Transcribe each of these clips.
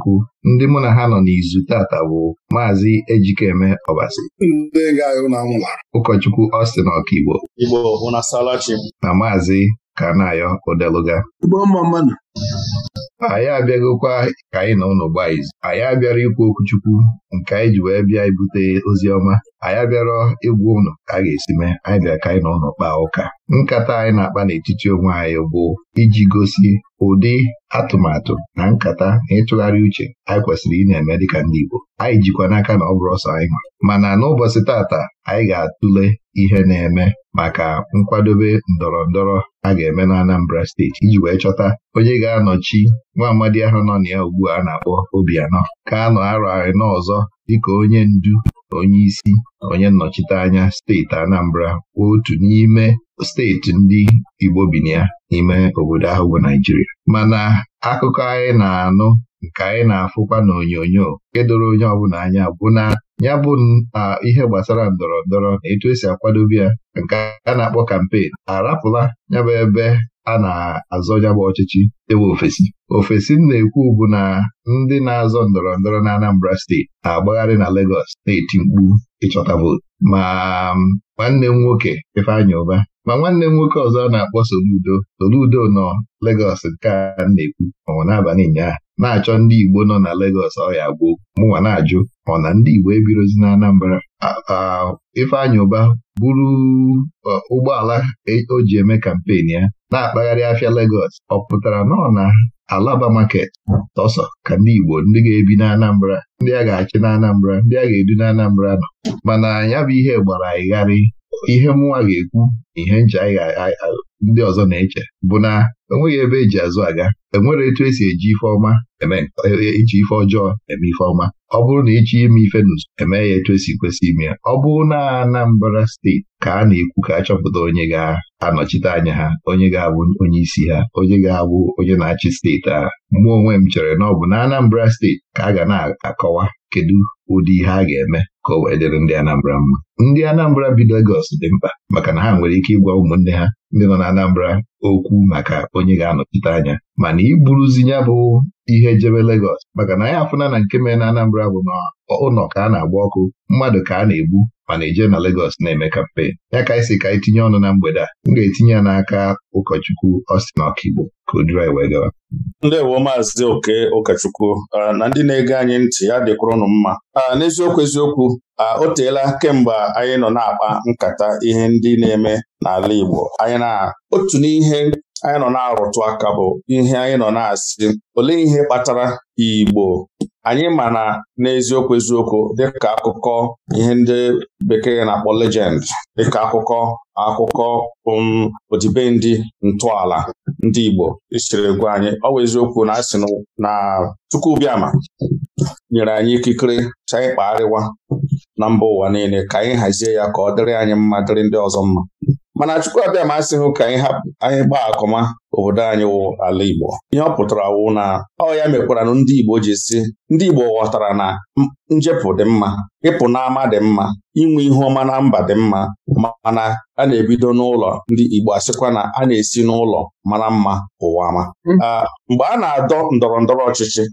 Chukwu ndị mụ na ha nọ n'izu tata bụ Maazị Ejikeme Ọbasi ụkọchukwu Austin Ọkaigbo na Maazị Kanayo Odeluga anyị abịaghịkwa ka anyị na ụnụ gbaa izu anyị abịara ikwu okwuchukwu nke anyị ji wee bịa ibute ozi ọma anyị abịara ịgwa ụnụ ka a ga-esi mee anyị bịa ka anyị na ụlọ kpaa ụka nkata anyị na-akpa n'etiti onwe anyị bụ iji gosi ụdị atụmatụ na nkata na ịtụgharị uche anyị kwesịrị ị na-eme dịka ndị Igbo anyị jikwa n'aka na ọ bụrụ ọsọ anyị nwa mana n'ụbọchị tata anyị ga-atụle ihe na-eme maka nkwadobe ndọrọ ndọrọ a ga-eme na Anambra steeti iji wee chọta onye ga-anọchi nwa amadi ahụ nọ na ya ugbu a na-akpọ Obianọ ka a nọ arọ anọ ọzọ dịka onye ndu onye isi onye nnọchite anya steeti Anambra otu n'ime steeti ndị Igbo bi na ya n'ime obodo ahụ bụ Naijiria mana akụkọ anyị na-anụ nke anyị na-afụkwa n'onyonyo nke doro onye ọbụla anya bụ na ya bụ na ihe gbasara ndọrọ ndọrọ na etu esi akwadobe ya nke a na-akpọ kampen arapụla ya bụ ebe a na azọ bụ ọchịchị ewe ofesi ofesi m na-ekwu bụ na ndị na-azọ ndọrọ ndọrọ na Anambra steeti na-agbagharị na Legọs na-eti mkpu ịchọta vootu ma um, nwanne m nwoke Ifeanyị Ụba ma nwanne m nwoke ọzọ a na-akpọ Soludo Soludo nọ Legọs nke a na-ekwu ọnwụ n'abalị ụnyaahụ na-achọ ndị Igbo nọ na Legọs ọhịa gboo mụnwa na-ajụ ọ na ndị Igbo ebirozi na Anambra Ifeanyị Ụba buru ụgbọala e, o ji eme kampen ya na-akpagharị afịa Legọs ọ pụtara nọ na Alaba Maket tọsọ ka ndị Igbo ndị ga-ebi na Anambra ndị a ga-achị na Anambra ndị a ga-edu na Anambra nọ mana ya bụ ihe gbara ịgharị ihe mụnwa ga-ekwu na ihe nji ndị ọzọ na-eche bụ na enweghị ebe eji azụ aga enwere etu esi eji ife ọma eme e, e, ife ọjọọ eme ife ọma ọ bụrụ na ịchọ e ime ife n'ụzọ eme ya etu esi kwesị ime ya ọ bụrụ na Anambra steeti ka a na-ekwu ka a chọpụta onye ga-anọchite anya ha onye ga-abụ onye isi ha onye ga-abụ onye na-achị steeti ahụ mụ onwe m chere na ọ bụ na Anambra steeti ka a ga na-akọwa kedu ụdị ihe a ga-eme ka o wee dịrị ndị Anambra mma ndị Anambra bi Legọs dị mkpa maka na ha nwere ike ịgwa ụmụnne ha ndị nọ na Anambra okwu maka onye ga-anọchite anya mana iburuzi ya bụ ihe jebe legos maka na anyị afụna na nke mere na Anambra bụ na ụlọ ka a na-agba ọkụ mmadụ ka a na-egbu mana eje na legos na-eme kampen ya ka anyị si ka anyị e tinye ọnụ na mgbede a m ga-etinye ya n'aka ụkọchukwu Austin Ọkigbo ka o duru anyị wee gawa. ewo Maazị Oke ụkọchukwu na ndị na-ege anyị ntị ya dịkwurụnụ mma n'eziokwu eziokwu a o teela kemgbe anyị nọ na-akpa nkata ihe ndị na-eme n'ala Igbo anyị na otu n'ihe anyị nọ na-arụtụ aka bụ ihe anyị nọ na-asị olee ihe kpatara Igbo anyị ma na n'eziokwu eziokwu dịka akụkọ ihe ndị bekee na-akpọ legend dịka akụkọ akụkọ um, odibendị ntọala ndị Igbo isiri e gwa anyị ọ bụ eziokwu na asị na Chukwubiama nyere anyị ikikere ka anyị kpagharịwa na mba ụwa niile ka anyị hazie ya ka ọ dịrị anyị mma dịrị ndị ọzọ mma mana Chukwuabiam asịghị ka anyị hapụ anyị gbaa akọma obodo anyị wụ ala Igbo ihe ọ pụtara wụ na ọ ya mekwara na ndị Igbo ji si ndị Igbo ghọtara na njepụ dị mma ịpụ n'ama dị mma inwe ihu ọma na mba dị mma mana a na-ebido n'ụlọ ndị Igbo asịkwa na a na-esi n'ụlọ mara mma ụwa ma hmm. ah, mgbe a na-adọ ndọrọ ndọrọ ọchịchị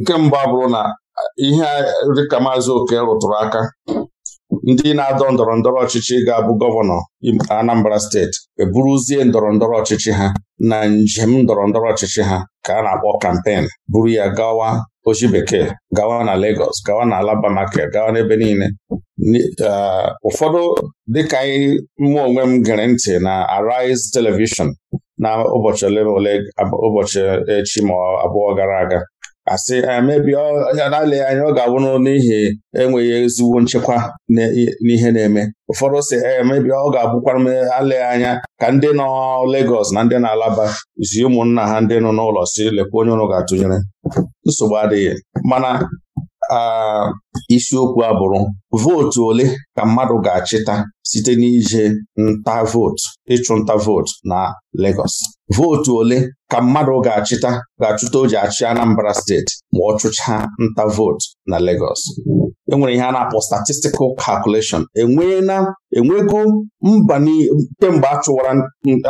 nke mba bụrụ na ihe dịka maazị oke rụtụrụ aka ndị na-adọ ndọrọ ndọrọ ọchịchị ga-abụ gọvanọ Anambra steeti eburuzie ndọrọ ndọrọ ọchịchị ha na njem ndọrọ ndọrọ ọchịchị ha ka a na-akpọ kampen buru ya gawa ochi bekee gawa na Lagos gawa na Alaba gawa n'ebe niile ụfọdụ dịka anyị mụ onwe m gere ntị na Arise Television na ụbọchị ole ụbọchị echi ma abụọ gara aga asị emebi na-alịghị anya ọ ga-abụrụ n'ihi enweghị ezigbo nchekwa n'ihe na-eme ụfọdụ si emebi eh, ọ ga-abụkwara m alịghị anya ka ndị nọ Legọs na ndị na-alaba zi ụmụnna ha ndị nọ n'ụlọ si lekwa onye ga-atụnyere nsogbu adịghị mana Ah, isiokwu abụrụ bụrụ vootu ole ka mmadụ ga-achịta site n'ije nta vootu ịchụ nta vootu na Lagos vootu ole ka mmadụ ga-achịta ga-achụta o ji achị Anambra steeti ma ọ chụchaa nta vootu na Lagos enwere ihe a na-akpọ statistical calculation enweela enwego mba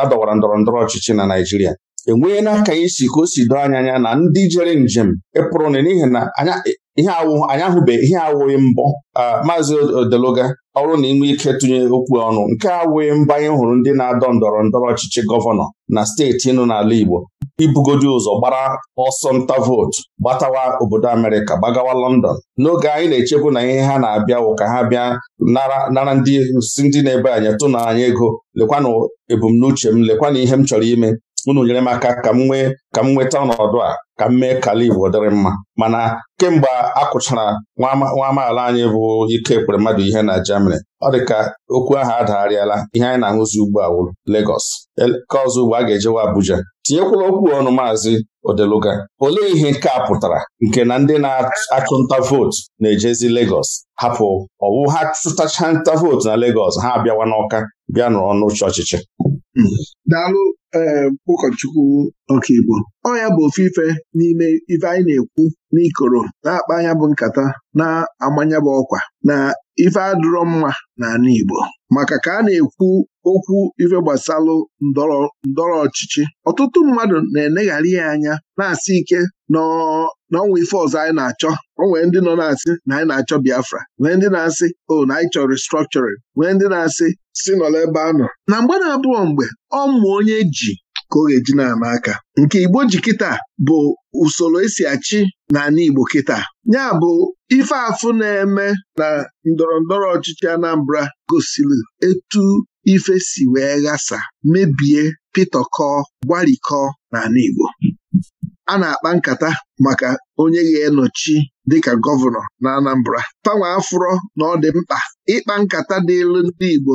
ndọrọ ndọrọ ọchịchị na Naịjirịa enweela ka anyị si ka o si anya na ndị jere njem ịpụrụ n'ihi na anya ihe awụ anyị ahụbeghị ihe awụghị mbọ maazị odeluga ọrụ na inwe ike tụnye okwu ọnụ nke awụghị mba anyị hụrụ ndị na-adọ ndọrọ ndọrọ ọchịchị gọvanọ na steeti nọ n'ala Igbo ibugodi ụzọ gbara ọsọ nta vootu gbatawa obodo Amerịka gbagawa London n'oge anyị na-echebu na ihe ha na-abịa wụ ka ha bịa nara ndị si ndị na-ebe anyị tụ anyị ego lekwanụ ebumnuche m lekwana ihe m chọrọ ime unu nyere m aka ka m nwee ka m nweta ọnọdụ a ka m mee ka ala Igbo dịrị mma mana kemgbe a kụchara nwa amaala anyị bụ ike ekpere mmadụ ihe na Germany ọ dị ka okwu ahụ adagharịala ihe anyị na-ahụzi ugbu a wụrụ Lagos ka ọzọ ugbu a ga-ejewa Abuja tinyekwala okwu ọnụ maazị Odeluga olee ihe nke a pụtara nke na ndị na-achụnta vootu na-ejezi Lagos hapụ ọwụ ha chụtacha nta vootu na Lagos ha abịawa n'ọka bịa nọrọ n'ụche ọchịchị ee ehm, ụkọchukwu ọkaigbo ọ ya bụ ofe ife n'ime ife anyị na-ekwu n'ikoro na-akpa anya bụ nkata na-amanya bụ ọkwa na ife adịrọ mma n'ala Igbo maka ka a na-ekwu okwu ife gbasalụ ndọrọ ọchịchị ọtụtụ mmadụ na-eneghara ya anya na-asị ike na na ọnwa ife ọzọ anyị na-achọ o ndị nọ na-asị na anyị na-achọ Biafra nwee ndị na-asị o na anyị chọrọ restructuring nwee ndị na-asị si nọla ebe a nọ na mgbe na-abụọ mgbe ọ onye ji ka ọ ga-eji na-ama aka nke Igbo ji kịta bụ usoro esi achị n'ala Igbo kịta ya bụ ife afụ na-eme na ndọrọndọrọ ọchịchị Anambra gosiri etu ife si wee ghasa mebie pịtọkọ gwarikọ n'ala Igbo a na-akpa nkata maka onye ga enọchi dịka gọvanọ na Anambra panwa afụrọ na ọ dị mkpa ịkpa nkata dịlụ ndị Igbo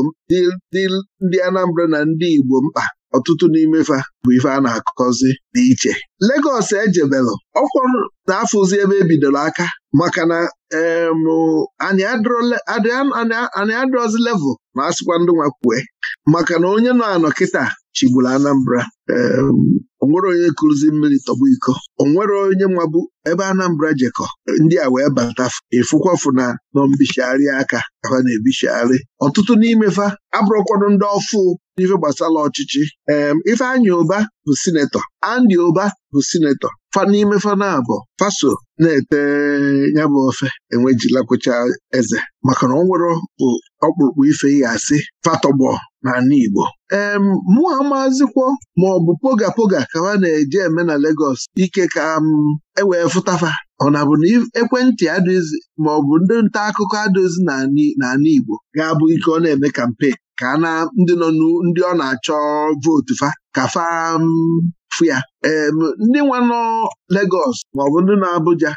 ndị Anambra na ndị Igbo mkpa ọtụtụ n'ime fa bụ ife a na-akọzi dị iche Legọs ejebelụ ọkwụ na-afụzi ebe ebidoro aka maka na anyị adrozi level ma a sịkwa ndị nwa kwue maka na onye nọ anọ kịta chigburu Anambra onwere onye kụrụzi mmiri tọgbu iko onwere onye bụ ebe Anambra jekọ ndị a wee bata ịfụkwafụ na nọ aka afa na ebichigharị ọtụtụ n'imefa abụrụkwanụ ndị ọfụ n'ife gbasara ọchịchị Ifeanyi Ụba bụ sinetọ Andy Ụba bụ sinetọ fa n'ime fana bụ, faso na-ete ya bụ ofe enwejilakwụcha eze maka na ọ nwere ọkpụrụkpụ ife ya asị fatọgbọ n'ala Igbo ee mụa maazịkwọ ma ọ bụ poga poga ka ha na-eji eme na Legọs ike ka m ewee fụtafa ọ na bụ na ekwentị adịghịzi ma ọ bụ ndị nta akụkọ adịghịzi n'ala Igbo ga-abụ ike ọ na-eme kampen ka na ndị nọ ndị ọ na-achọ vootu fa ka fa fụ em ndị nwe nọ Legọs maọbụ ndị nọ Abuja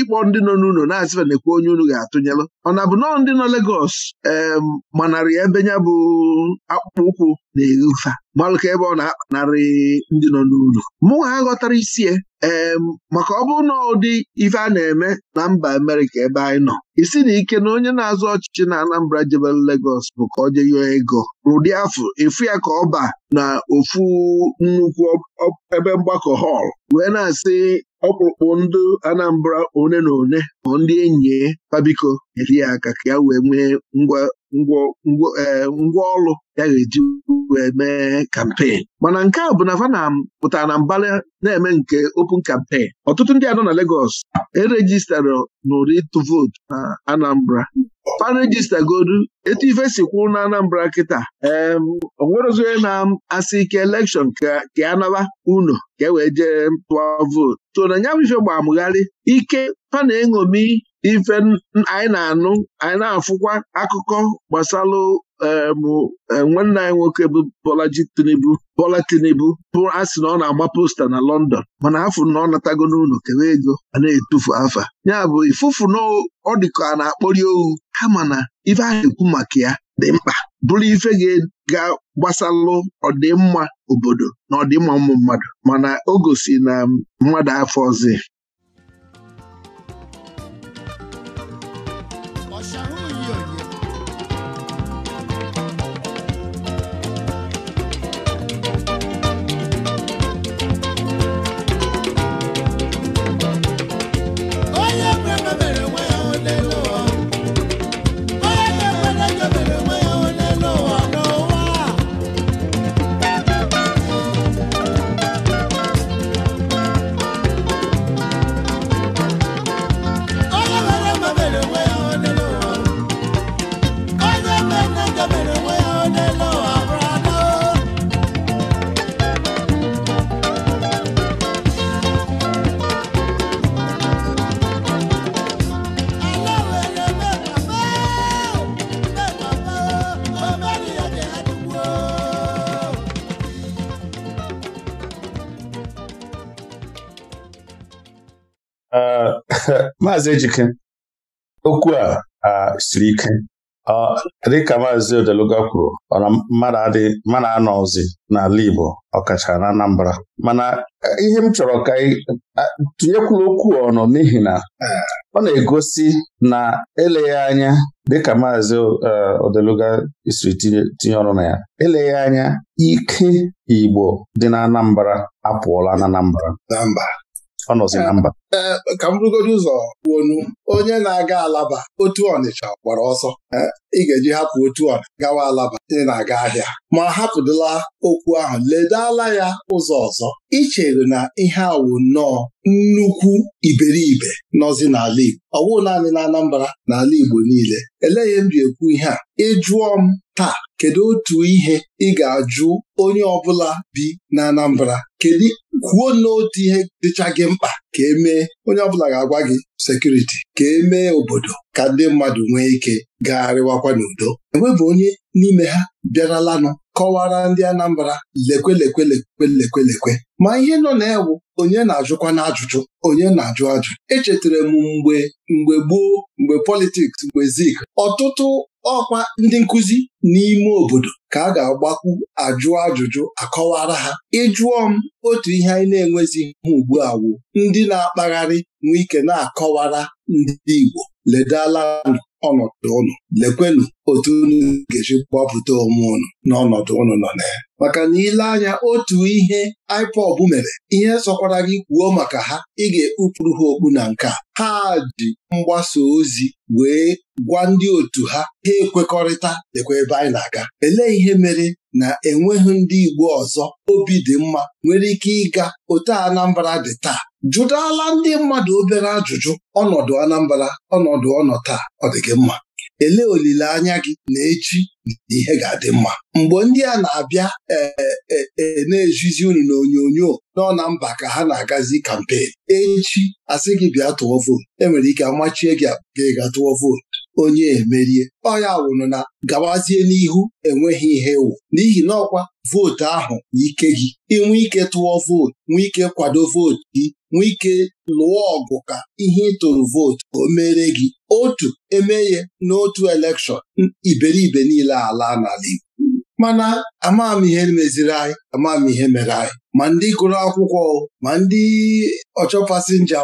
ịkpọ ndị nọ n'ụlọ na-asịba na-ekwu onye unu ga-atụnyelụ ọ na-abụ nọọ ndị nọ Legọs em manarị ebe ya bụ akpụkpọ ụkwụ na-eghe ụfa malụka ebe ọ na-akpanarị ndị nọ n'ụlọ mụ ha ghọtara ee maka ọ bụrụ na ụdị ife a na-eme na mba Amerika ebe anyị nọ isi na ike na onye na-azụ ọchịchị na Anambra jebel Legos bụ ka ọ je ego rụdị afọ efu ya ka ọ ba na ofu nnukwu ebe mgbakọ họl wee na-asị ọkpụkpụ ndị Anambra one na one ma ndị enyi pabiko e, eri ya aka ka ya wee nwee ngwa ngwaọrụ eh, ya ga-eji wee mee kampen mana nke a bụ na Vanam pụtara na mbara na-eme nke open campaign ọtụtụ ndị anọ na Lagos e erejistara n'ụdị ịtụ vootu na Anambra parejista godu etu ife si kwụ na Anambra kịta onwerozi na-asị ike elekshọn ka anaba unu ka e wee jee tụọ vootu so na nya bụ ife gbamgharị ike fa na-eṅomi ife anyị na-anụ anyị na-afụkwa akụkọ gbasalụ e, nwanne anyị nwoke bụ Bola Tinubu Bola Tinubu bụ a sị na ọ na-agba posta na London mana afụ na ọ natago n'ụlọ kewe ego a na-etufu afa ya bụ ifufu na ọ dịka a na-akpọri ohu kama na ife ahụ ekwu maka ya dị mkpa bụrụ ife ga-gbasalụ ọdịmma obodo na ọdịmma ụmụ mmadụ mana o gosi na mmadụ afọ ọzọ Maazị Ejike okwu a siri ike dịka Maazị Odeluga kwuru ọ na mmadụ anọzi n'ala Igbo ọkachara na Anambra mana ihe m chọrọ ka tụnyekwuru okwu ọnụ n'ihi na ọ na-egosi na eleghị anya dịka Maazị e, Odeluga siri tinye ọrụ na ya eleghị anya ike Igbo dị na Anambra apụọla na Anambra ọ nọzi na mba e, ka m rugoro ụzọ wonu onye na-aga alaba otu ọnịcha gbara ọsọ ị ga-eji hapụ otu ọ gawa alaba ị na-aga ahịa ma hapụdịla okwu ahụ ledala ya ụzọ ọzọ ichere na ihe awụ nnọọ nnukwu iberibe nọzi n'ala Igbo ọ bụghị naanị na Anambra n'ala Igbo niile eleghị m ji ekwu ihe a ị jụọ m taa kedu otu ihe ị ga-ajụ onye ọbụla bi na Anambra kedu kwuo n'otu ihe dịcha gị mkpa ka emee onye ọbụla ga-agwa gị sekuriti ka emee obodo ka ndị mmadụ nwee ike gagharịwakwa n'udo enwebụ onye n'ime ha bịaralanụ kọwara ndị Anambra lekwelekwelekwelekwelekwe ma ihe nọ na-ewu onye na-ajụkwa na-ajụjụ onye na-ajụ ajụ echetara m mgbe mgbe gboo mgbe politiks mgbe zik ọtụtụ ọkwa ndị nkụzi n'ime obodo ka a ga-agbakwu ajụ ajụjụ akọwara ha ịjụọ m otu ihe anyị na-enwezi ha ugbu a ndị na-akpagharị nwee na-akọwara ndị Igbo ledala ọnọdụ ụnụ lekwenụ otu unu ga-eji onwe ụnụ n'ọnọdụ ụnụ nọ na ya maka na ile anya otu ihe IPOB mere ihe sọkwara gị kwuo maka ha ị ga-ekpupụrụ ha okpu na nke a. ha ji mgbasa ozi wee gwa ndị otu ha ha ekwekọrịta lekwa ebe anyị na-aga elee ihe mere na enweghị ndị Igbo ọzọ obi dị mma nwere ike ịga otu Anambra dị taa jụdala ndị mmadụ obere ajụjụ ọnọdụ Anambra ọnọdụ ọnọ taa ọ dị gị mma elee olileanya gị na echi na ihe ga-adị mma mgbe ndị a na-abịa e, e, e, na-ejizi unu na onyonyo nọ na mba ka ha na-agazi kampen echi asị gị bịa tụọ vootu enwere ike amachie gị gị ga tụọ vootu onye emerie ọ ya wụrụ na gawazie n'ihu enweghị ihe wụ n'ihi na ọkwa vootu ahụ ike gị inwe ike tụọ vootu nwee ike kwado vootu gị nwee ike lụọ ọgụ ka ihe ịtụrụ vootu o mere gị otu emeghe n'otu elekshọn iberibe niile ala n'ala Igbo mana ihe meziri anyị ihe mere anyị ma ndị gụrụ akwụkwọ ma ndị ọchọ pasinja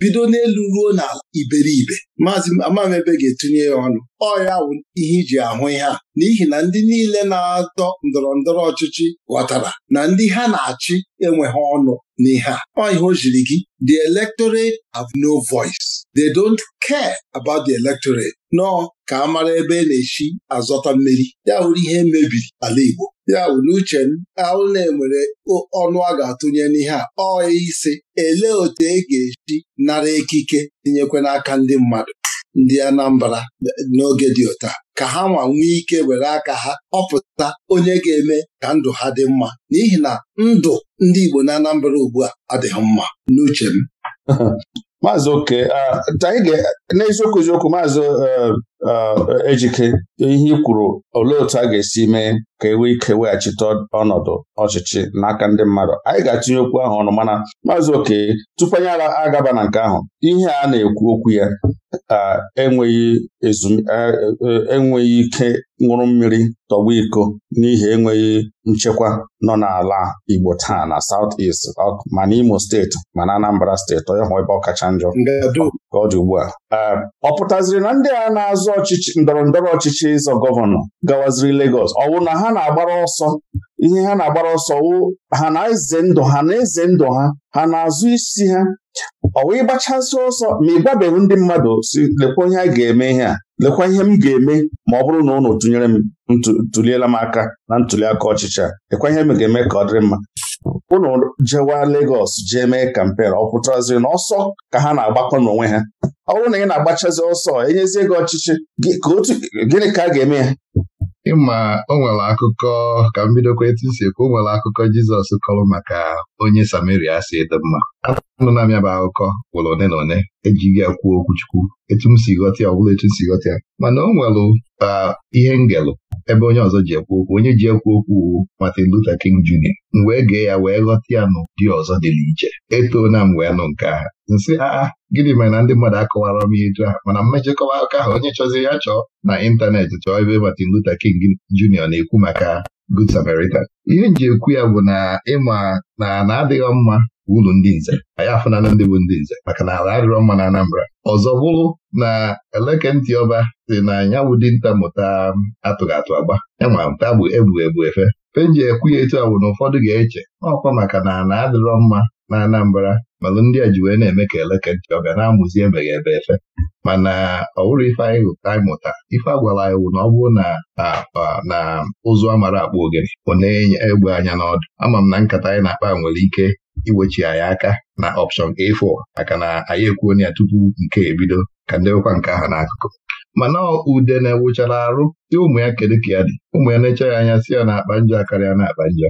bido n'elu ruo na iberibe maazị ebe ga-etinye ya ọnụ ọ bụ ihe iji ahụ ihe a n'ihi na ndị niile na-atọ ndọrọ ndọrọ ọchịchị ghọtara na ndị ha na-achị enweghị ọnụ n'ihe a ọ ihe o jiri gị the electorate have no voice they don't care about the electorate nọ ka a mara ebe e na-echi azọta mmeri ya wuru ihe e mebiri ala Igbo ya wuru n'uche m ahụ na-enwere ọnụ a ga-atụnye n'ihe a ọ isi ele otu e ga-echi nara ekike tinyekwe n'aka ndị mmadụ ndị Anambra n'oge dị ụta ka ha nwa nwee ike were aka ha ọpụta onye ga-eme ka ndụ ha dị mma n'ihi na ndụ ndị Igbo na Anambra ugbu a adịghị mma n'uche m Maazị Oke n'eziokwu eziokwu maazị eh, Eh, ejike ihe i kwuru olee otu a ga-esi mee ka e ike weghachite ọnọdụ ọchịchị n'aka ndị mmadụ anyị ga-atụnye okwu ahụ ọnụ mana maazị oke tupu anyị agaba na nke ahụ ihe a na-ekwu okwu ya e, e, enweghị ike nwụrụ mmiri tọgbu iko n'ihi enweghị nchekwa nọ n'ala Igbo taa na South East ma n'Imo steeti ma na Anambra steeti onye hụ ebe ọ kacha njọ ka ọ dị ugbu a ọ pụtaziri na ndị a na-azụ ọchịchị ndọrọ ndọrọ ọchịchị ịzọ gọvanọ gawaziri Legos ọ wụ na ha na-agbara ọsọ ihe ha na-agbara ọsọ wụ ha na-eze ndụ ha na-eze ndụ ha ha na-azụ isi ha ọ wụ ịgbachasị ọsọ ma ị gbabeghị ndị mmadụ si lekwa ihe a ga-eme ihe a lekwa ihe m ga-eme ma ọ bụrụ na ụnụ tụnyere m ntuliela m aka na ntuliaka ọchịchị a lekwa ihe m ga-eme ka ọ dịrị mma unu jewa legos jee mee kampen ọ na ọsọ ka ha na-agbakọ n'onwe ha ọ bụrụ na ị na-agbachazi ọsọ enyezie gị ọchịchị gịnị ka a ga-eme ya ịma o nwere akụkọ ka m bidokwa etu si ekwu o nwere akụkọ Jizọs kọrọ maka onye Samaria si dị mma anụna m ya bụ akụkọ gwụrụ one na one ejighị ya kwuo chukwu etu m si ghọta ya ọ bụla etu m si ghọta ya mana o nwere ihe ngelụ ebe onye ọzọ ji ekwu okwu onye ji ekwu okwu Martin Luther King Jr. m wee gee ya wee ghọta ya dị ọzọ dị n'iche etoo na m wee nụ nke a, nsị aa gịnị mere na ndị mmadụ akọwara m eju ahụ mana mmejikọwa aka ahụ onye chọzi ya chọọ na ịntanetị chọọ ebe Martin Luther King Jr. na-ekwu maka Good Samaritan ihe nji ekwu ya bụ na ịma na na adịghị mma ulu ndị nze anyị afụnala ndị bụ ndị nze maka na ala adịrọ mma na Anambra ọzọ bụrụ na eleke Ntịọba ọba dị na anyanwụ dinta mụta atụghị atụ agba enwa mụta bụ ebu ebu efe penji ekwu ya etu a bụ na ụfọdụ ga-eche ọkwa maka na na adịrọ mma na Anambra malụ ndị a ji wee na-eme ka eleke nchọ ga na-amụzi ebeghị ebe efe mana ọ bụrụ ife anyị gụta anyị mụta ife a gwara anyị na ọ bụrụ na na ụzụ amara akpụ ogene ọ na-enye egbe anya n'ọdụ ama m na nkata anyị na-akpa nwere ike iwechi anyị aka na ọpshọn A4 maka na anyị ekwuo ya tupu nke ebido ka ndị nwekwa nke ahụ n'akụkụ mana ude na-ewuchara arụ dị ụmụ ya kedu ka ya dị ụmụ ya na-eche ya anya si ya na akpa njọ akarịa na akpa njọ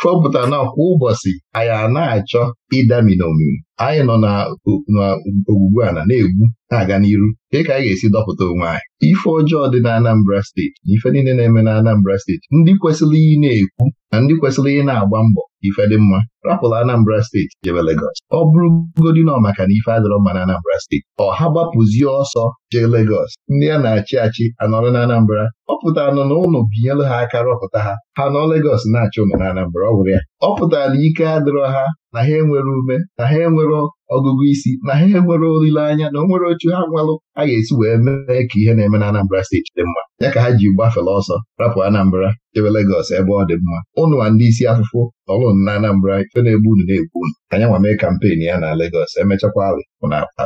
fọpụta na kwa ụbọchị anyị a na-achọ ịdaminomi anyị nọ n'ogbugbu a na na-egbu, na-aga n'iru Dị ka anyị ga-esi dọpụta onwe anyị ife ọjọọ dị na Anambra steeti na ife niile na-eme na Anambra steeti ndị kwesịrị iyi na-ekwu na ndị kwesịrị iyi na-agba mbọ ife dị mma rapụla Anambra steeti jebe Legọs ọ bụrụgodị nọ maka na ife adịrọ mma na Anambra steeti ha gbapụzie ọsọ jee Legọs ndị a na-achị achị anọrọ na Anambra ọ pụtara nọ na ụnụ binyelu ha aka rọpụta ha ha nọ Legọs na-achị ụnụ na Anambra ọ bụrụ ya ọ pụtara na ike adịrọ ha na ha enwere ume na ha enwere ọgụgụ isi na ha enwere olileanya na onwere nwere ha nwalụ a ga-esi wee mee ka ihe na-eme na Anambra steeti dị mma ya ka ha ji gbafere ọsọ rapụ Anambra chebe Legọs ebe ọ dị mma ụnụ na ndị isi afụfụ nọrụ na Anambra ife na-egbu unu na-egbu unu anya nwa mee kampeen ya na Legọs emechakwa alị na akpa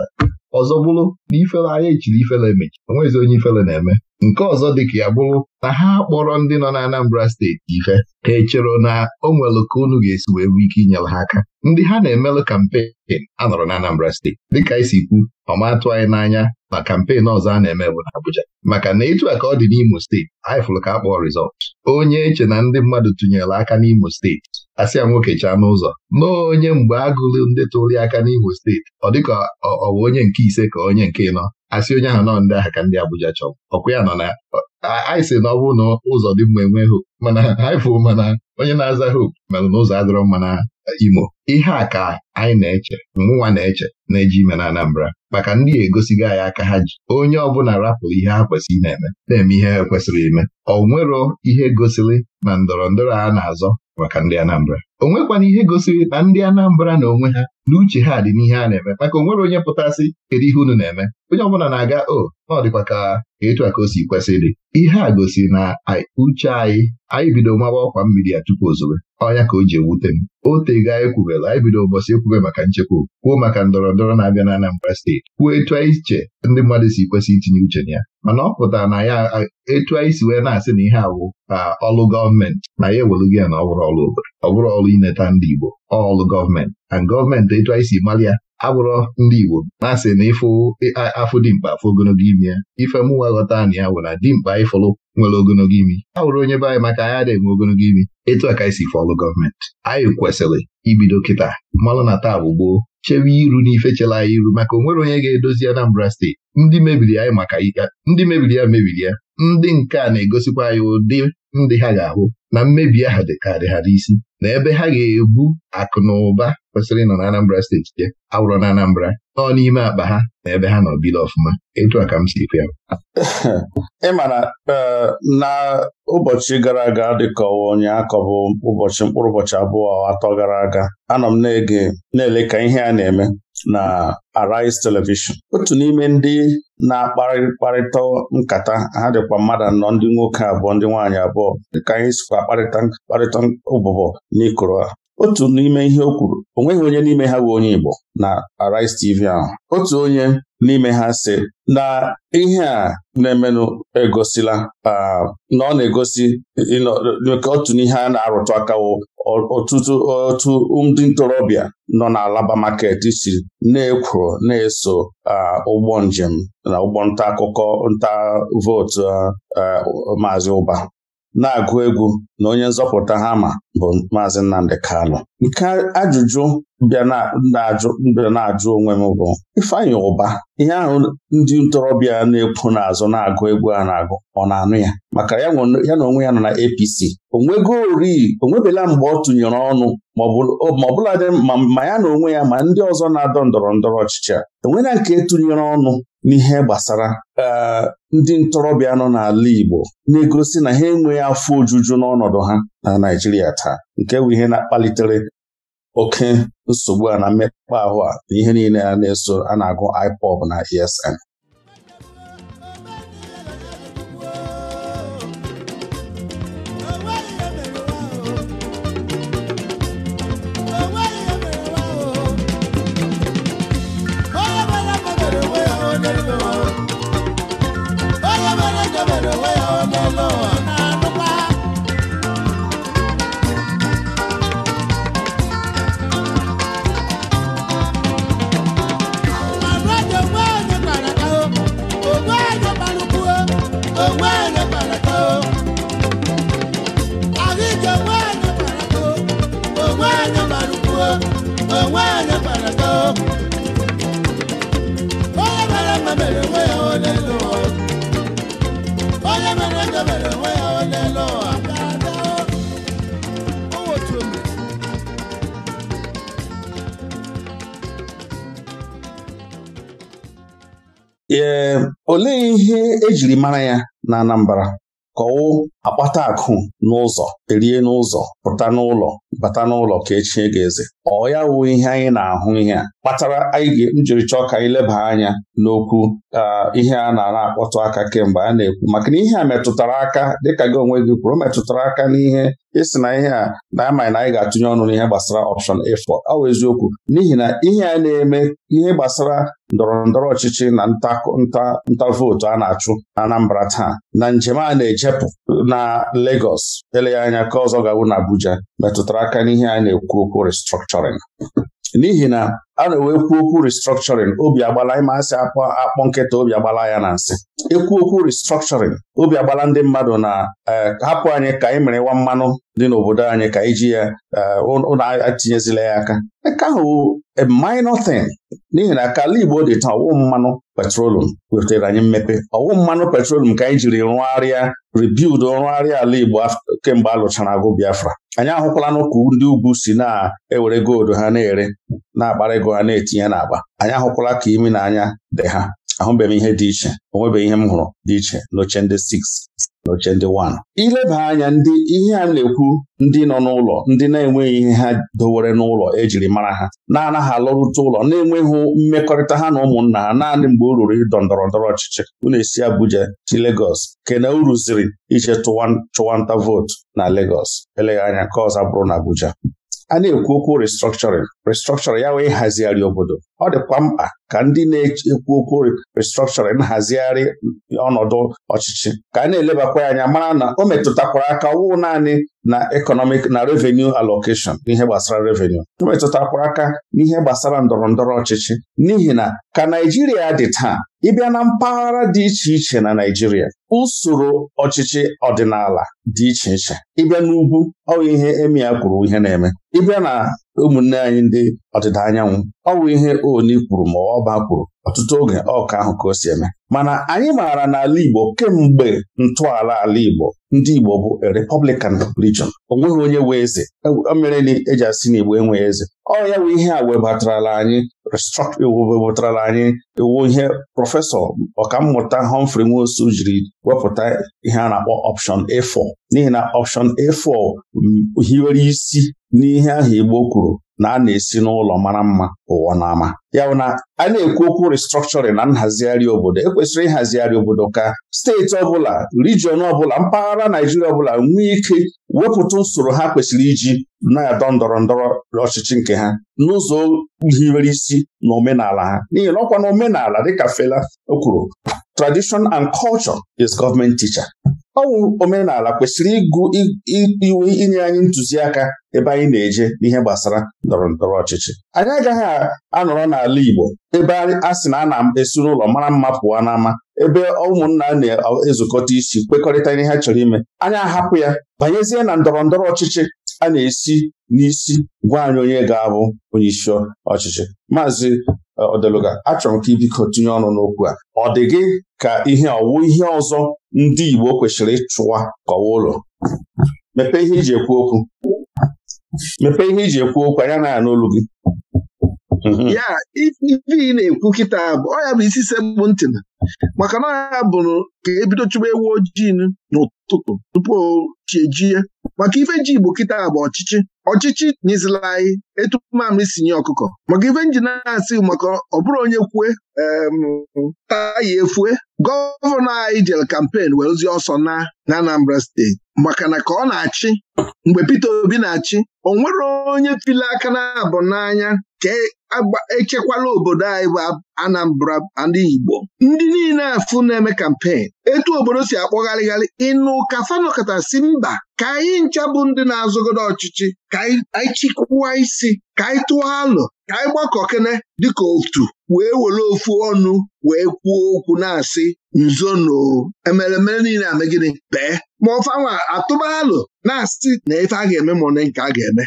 ọzọ bụrụ na ifele anya echiri ifere emechi onwezi onye ifere na-eme nke ọzọ dị ka ya bụrụ na ha kpọrọ ndị nọ na Anambra steeti ife ha echere na o nwere ka unu ga-esi wee nwee ike inyere ha aka ndị ha na-emelụ kampen anọrọ na Anambra steeti dịka anyị kwu ọmatụ anyị n'anya na kampen ọzọ a na-eme bụ na Abuja maka na etu a ka ọ dị n'Imo steeti anyị fụrụ ka a kpọọ rizọt onye eche na ndị mmadụ tụnyere aka n'Imo steeti asị ya nwoke chaa n'ụzọ nọọ onye mgbe agụlụ ndị tụrụ aka n'Imo steeti ọ dịka ọ bụ onye nke ise ka onye nke ịnọ asị onye ahụ nọ ndị ahụ ka ndị Abuja chọrọ ọkwa ya nọ na anyị sị na ọ bụ na ụzọ dị mma enwe hope mana anyị fụ mana onye na-aza hope merụ na ụzọ adịrọ mma na Imo ihe a ka anyị na-eche mụnwa na-eche na-eji ime na Anambra maka ndị egosigo anyị aka ha ji onye ọbụla rapụrụ ihe ha kwesịrị na-eme na-eme ihe ha kwesịrị ime ọ nwero ihe gosiri na ndọrọ ndọrọ a na-azọ maka ndị Anambra o nwekwana ihe gosiri na ndị Anambra na onwe ha na uche ha dị n'ihe a na-eme maka onwere onye pụtasị kedu ihe unu na-eme onye ọbụla na-aga o ọ dịkwa ka etu a ka o si kwesị dị ihe a gosiri na uche anyị anyị bido mawa ọkwa mmiri ya tupu ozobe ọya ka o ji ewute m Ote tego anyị anyị bido ụbọchị ekwube maka nchekwa kwuo maka ndọrọ ndọrọ na-abịa na Anambra steeti kwuo etu anyị iche ndị mmadụ si kwesị itinye uche na ya mana ọ pụtara na ya etu anyị si wee na-asị na ihe awụ ọlụ gọọmenti na ya ewelugo ya na ọ bụrụ ọlụ obodo ọ bụrụ ọlụ ineta ndị Igbo ọlụ gọọmenti na gọọmenti etu anyị si mara ya agbụrọ ndị Igbo na-asị na ịfụ afụ dimkpa afụ ogologo imi ya ife mụwa ghọta na ya wụ na dimkpa ịfụlụ nwere ogologo imi ha wụrụ onye be anyị maka anyị adịghị enwe ogologo imi etu aka isi fọlụ gọọmenti anyị kwesịrị ibido kịta mmanụ na taa bụ gboo chewe iru n'ife chere anyị iru maka onwere onye ga-edozi Anambra steeti ndị mebiri anyị maka ndị mebiri ya mebiri ya ndị nke a na-egosikwa anyị ụdị ndị ha ga-ahụ na mmebi ahụ ka dị ha n'isi na ebe ha ga-ebu akụ na ụba kwesịrị ịnọ na Anambra steeti je awụrọ na Anambra nọọ n'ime akpa ha na ebe ha nọ bido ọfụma etu a ka m si kwu ị e, na ụbọchị gara aga dịkọwa onye akọbụ ụbọchị mkpụrụ ụbọchị abụọ atọ gara aga anọ m na-ege na-ele ka ihe a na-eme na Arise Television otu n'ime ndị na-akparịkparịta nkata ha dịkwa mmadụ anọ ndị nwoke abụọ ndị nwaanyị abụọ dịka anyị sikwa akparịta mkparịta ụbụbọ n'ikoro otu n'ime ihe o kwuru o nweghị onye n'ime ha bụ onye Igbo na Arise TV ahụ otu onye n'ime ha sị na ihe a na-emenụ egosila na ọ na-egosi ka otu n'ihe a na-arụtụ akawo ọtụtụ otu ndị ntorobịa nọ na Alaba market si na ekwu na-eso ụgbọ njem na ụgbọ nta akụkọ nta vootu Maazị Ụba na-agụ egwu na onye nzọpụta ha ma bụ Maazị Nnamdi Kano. nke ajụjụ bịa na-ajụ onwe m bụ Ifeanyị Ụba ihe ahụ ndị ntorobịa na-ekwu n'azụ na-agụ egwu a na-agụ ọ na-anụ ya maka ya na onwe ya nọ na APC onwego ori onwebela mgbe ọ tụnyere ọnụ ma ọbụladị ma ya na onwe ya ma ndị ọzọ na-adọ ndọrọ ndọrọ ọchịchị a nke tụnyere ọnụ n'ihe gbasara eh, ndị ntorobịa nọ n'ala Igbo na-egosi na ha enweghị afọ ojuju n'ọnọdụ ha na Naịjirịa taa nke bụ ihe na-akpalitere oke nsogbu a na mmekpa ahụ a na ihe niile a na-eso a na-agụ IPOB na ESN onwe gbara onye mere mere onwe ya elu onye mere mere onwe ya elu ee olee ihe ejiri mara ya na Anambra kọwụ akpata akụ n'ụzọ erie n'ụzọ pụta n'ụlọ bata n'ụlọ ka echie ga-eze ọ ya wụ ihe anyị na-ahụ ihe a kpatara anyị jiri chọọ ka anyị leba anya n'okwu ihe a na-ara akpọtụ aka kemgbe a na-ekwu maka na ihe a metụtara aka dịka gị onwe gị kwuru metụtara aka n'ihe ịsị na ihe a na-amaghị na anyị ga-atụnye ọnụ n'ihe gbasara option A4 ọ wụ eziokwu n'ihi na ihe a na-eme ihe gbasara ndọrọ ndọrọ ọchịchị na nta vootu a na-achụ na Anambra taa na njem a na-ejepụ na Lagos eleghị anya ka ọzọ ga-awụ na Abuja metụtara aka n'ihe a na-ekwu okwu restructuring n'ihi na a na-ewe kwuo okwu restructuring obi agbala ịma asị akpọ akpọ nkịta obi agbala ya na nsị ekwu okwu restructuring obi agbala ndị mmadụ na eh, hapụ anyị ka anyị mere ịwa mmanụ dị n'obodo anyị ka iji ya eh, ụlọ etinyezila ya aka nke ahụ a minor thing n'ihi na kala Igbo dị taa ọwụ mmanụ petrolum wetara anyị mmepe ọwụ mmanụ petrolum ka anyị jiri rụgharịa rebuild rụgharịa ala Igbo kemgbe a lụchara agụ Biafra anyị ahụkwala n'ụkwụ ndị ugwu si na-ewere gold ha na-ere na-akpara ego ha na-etinye n'akpa anyị ahụkwala ka imi na anya dị ha ahụbeghị m ihe dị iche onwebeghị ihe m hụrụ dị iche n'oche ndị 6 n'oche ndị 1 ileba anya ndị ihe a na-ekwu ndị nọ n'ụlọ ndị na-enweghị ihe ha dowere n'ụlọ ejiri mara ha na-anaghị alọrute ụlọ na-enweghị mmekọrịta ha na ụmụnna ha naanị mgbe o ruru ịdọ ndọrọ ndọrọ ọchịchị unu esi Abuja ti Legos. kena uru ziri ije chụwa nta vootu na legos eleghị anya nke ọzọ bụrụ na Abuja a na-ekwu okwu restructuring restructuring ya wee hazigharị obodo ọ dịkwa mkpa ka ndị na-ekwu okwu restructuring hazigharị ọnọdụ ọchịchị ka a na-elebakwa anya mara na o metụtakwara aka ọwụ naanị na economic na revenue allocation n'ihe gbasara revenue o metụtakwara aka n'ihe gbasara ndọrọ ndọrọ ọchịchị n'ihi na ka Naijiria dị taa ịbịa na mpaghara dị iche iche na Naijiria usoro ọchịchị ọdịnala dị iche iche ịbịa n'ugwu ọ ihe emi ya kwuru ihe na-eme ịbịa na ụmụnne anyị ndị ọdịda anyanwụ ọ bụ ihe Oni kwuru ma ọba kwuru ọtụtụ oge ọka ahụ ka o si eme mana anyị maara n'ala Igbo kemgbe ntọala ala Igbo ndị Igbo bụ Republican religion o nweghị onye wee eze mere e na eji asị igbo enweghị eze ọ ya bụ ihe a webatarala anyị webatarala anyị iwu e ihe prọfesọ ọkammụta Humphrey Nwosu jiri wepụta ihe a na-akpọ option A4 n'ihi na option A4 hiwere isi n'ihe ahụ Igbo kwuru na a na-esi n'ụlọ mara mma ụwa n'ama ya bụ na a na-ekwu okwu restructuring na nhazigharị obodo ekwesịrị ịhazigharị obodo ka steeti ọbụla rijiọn ọbụla mpaghara Naijiria ọbụla nwee ike wepụta usoro ha kwesịrị iji na-adọ ndọrọ ndọrọ ọchịchị nke ha n'ụzọ hiwere isi na omenala ha n'ihi na ọkwa na omenala dịka Fela o kwuru tradition and culture is government teacher ọwụ omenala kwesịrị ịgụ iwu inye anyị ntụziaka ebe anyị na-eje n'ihe gbasara ndọrọ ndọrọ ọchịchị anyị agaghị anọrọ n'ala Igbo ebe a sị na a na-esuru ụlọ mara mma pụọ n'ama ebe ụmụnna na-ezukọta isi kwekọrịta ihe ha chọrọ ime anyị ahapụ ya banyezie na ndọrọ ndọrọ ọchịchị a na-esi n'isi gwa anyị onye ga-abụ onye isi ọchịchị maazị e, Odeluga achọrọ m ka ibiko tinye ọnụ n'okwu a ọ dị gị ka ihe ọwụ ihe ọzọ ndị Igbo kwesịrị ịchụwa kọwa ụlọ mepee ihe iji ekwu okwu mepee ihe iji ekwu okwu anya na-anụ olu gị mhm. ya ife ị na-ekwu kịta bụ ọ bụ isi sekpụ ntị na maka na ya bụrụ ka ebido chụba ewu ojii n'ụtụtụ tupu chi ejie maka ife ji Igbo kịta bụ ọchịchị ọchịchị nyezila anyị etu mamịrị sinye ọkụkọ maka ife nji na-asị maka ọ bụrụ onye kwue taa efue gọvanọ anyị jel kampen wee ozi ọsọ na na Anambra steeti maka na ka ọ na-achị mgbe Peter Obi na-achị o nwere onye tili aka na abụ n'anya echekwala obodo anyị bụ Anambra ndị Igbo ndị niile afụ na-eme kampen etu obodo si akpọgharịgharị ịnụ ka fanọkọta si mba ka anyị ncha bụ ndị na-azụgodo ọchịchị ka anyị chịkwụwa isi ka anyị tụọ alụ ka anyị gbakọkene dịka otu wee were ofu ọnụ wee kwuo okwu na-asị nzono emeremere niile amegide bee ma ọfanwa atụba alụ na-asị na ife a ga-eme ma nke a ga-eme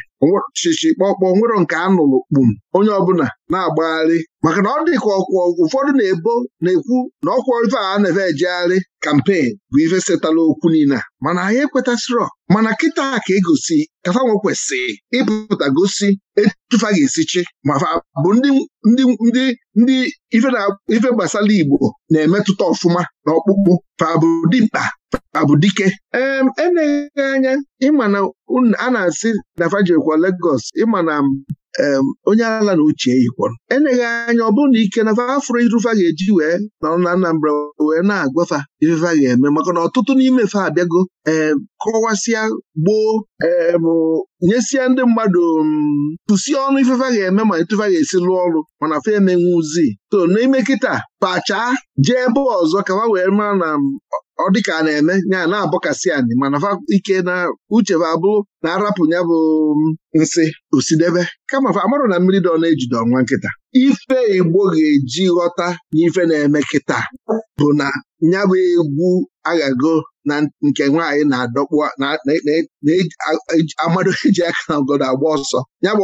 chichi kpọkpọ nwero nke a nụrụ kpum onye ọbụla na-agbagharị maka na ọ dị ka ụfọdụ na-ebo na-ekwu na ọkwọ ife a na efe ejegharị kampen bụ ife setala okwu niile mana anyị ekwetasịrọ mana kịta ka egosi kafanwe kwesịrị ịpụta gosi etufa ga esichi ma bụ ndị ndị ndị ife gbasara Igbo na-emetụta ọfụma na ọkpụkpụ fa bụ dimkpa Abụdike eleghị anya ịma na a na-asị na fajekwa Lagos ịma na onye ala na uche yikwọrọ eleghị anya ọ bụrụ na ike na afro irufa ga-eji wee nọrọ na Anambra wee na-agwafa Ifefa a ga-eme maka na ọtụtụ n'ime fe abịago ee kọwasịa gboo ee nyesịa ndị mmadụ tụsie mm, ọnụ ifefe a ga-eme ma etụfe a ga-esi lụọ ọrụ mana fa emenwuzi to n'ime kịta pachaa jee ebe ọzọ ka wee mara na mm, ọ dịka a na-eme ya na-abọkasị anyị mana fa ike na uche fa abụrụ na arapụ ya bụ mm, nsị osidebe kama fa amarụ na mmiri ọ na-ejide ọnwa nkịta ife Igbo ga-eji ghọta n'ife na-eme kịta bụ na ya bụ egwu aghago na nke nwaanyị na-adọkpụ na-amadụ eji aka na ogodo agba ọsọ ya bụ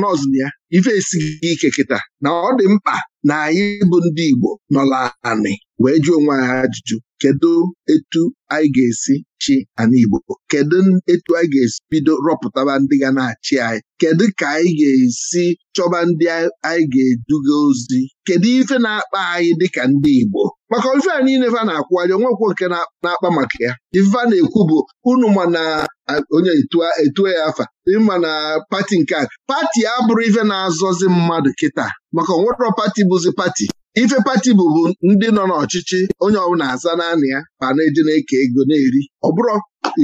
na ya ife esighị ike kịta na ọ dị mkpa na anyị bụ ndị Igbo nọla anị wee jụọ onwe anyị ajụjụ kedu etu anyị ga-esi chi ana Igbo kedu etu anyị ga-esi bido rọpụtaba ndị ga na-achị anyị kedu ka anyị ga-esi chọba ndị anyị ga-eduga ozi kedu ife na-akpa anyị dịka ndị Igbo maka ife a niile fa na-akwụgharị onwekwo nke na-akpa maka ya ife a na-ekwu bụ unu ma na onye etuo ya e afa ma na pati nke a pati abụrụ ife na-azọzi mmadụ kịta maka onwerọ pati bụzi pati ife pati bụbu ndị nọ n'ọchịchị onye ọbụla aza naanị ya ma na-eji na-eke ego na-eri ọ bụrụ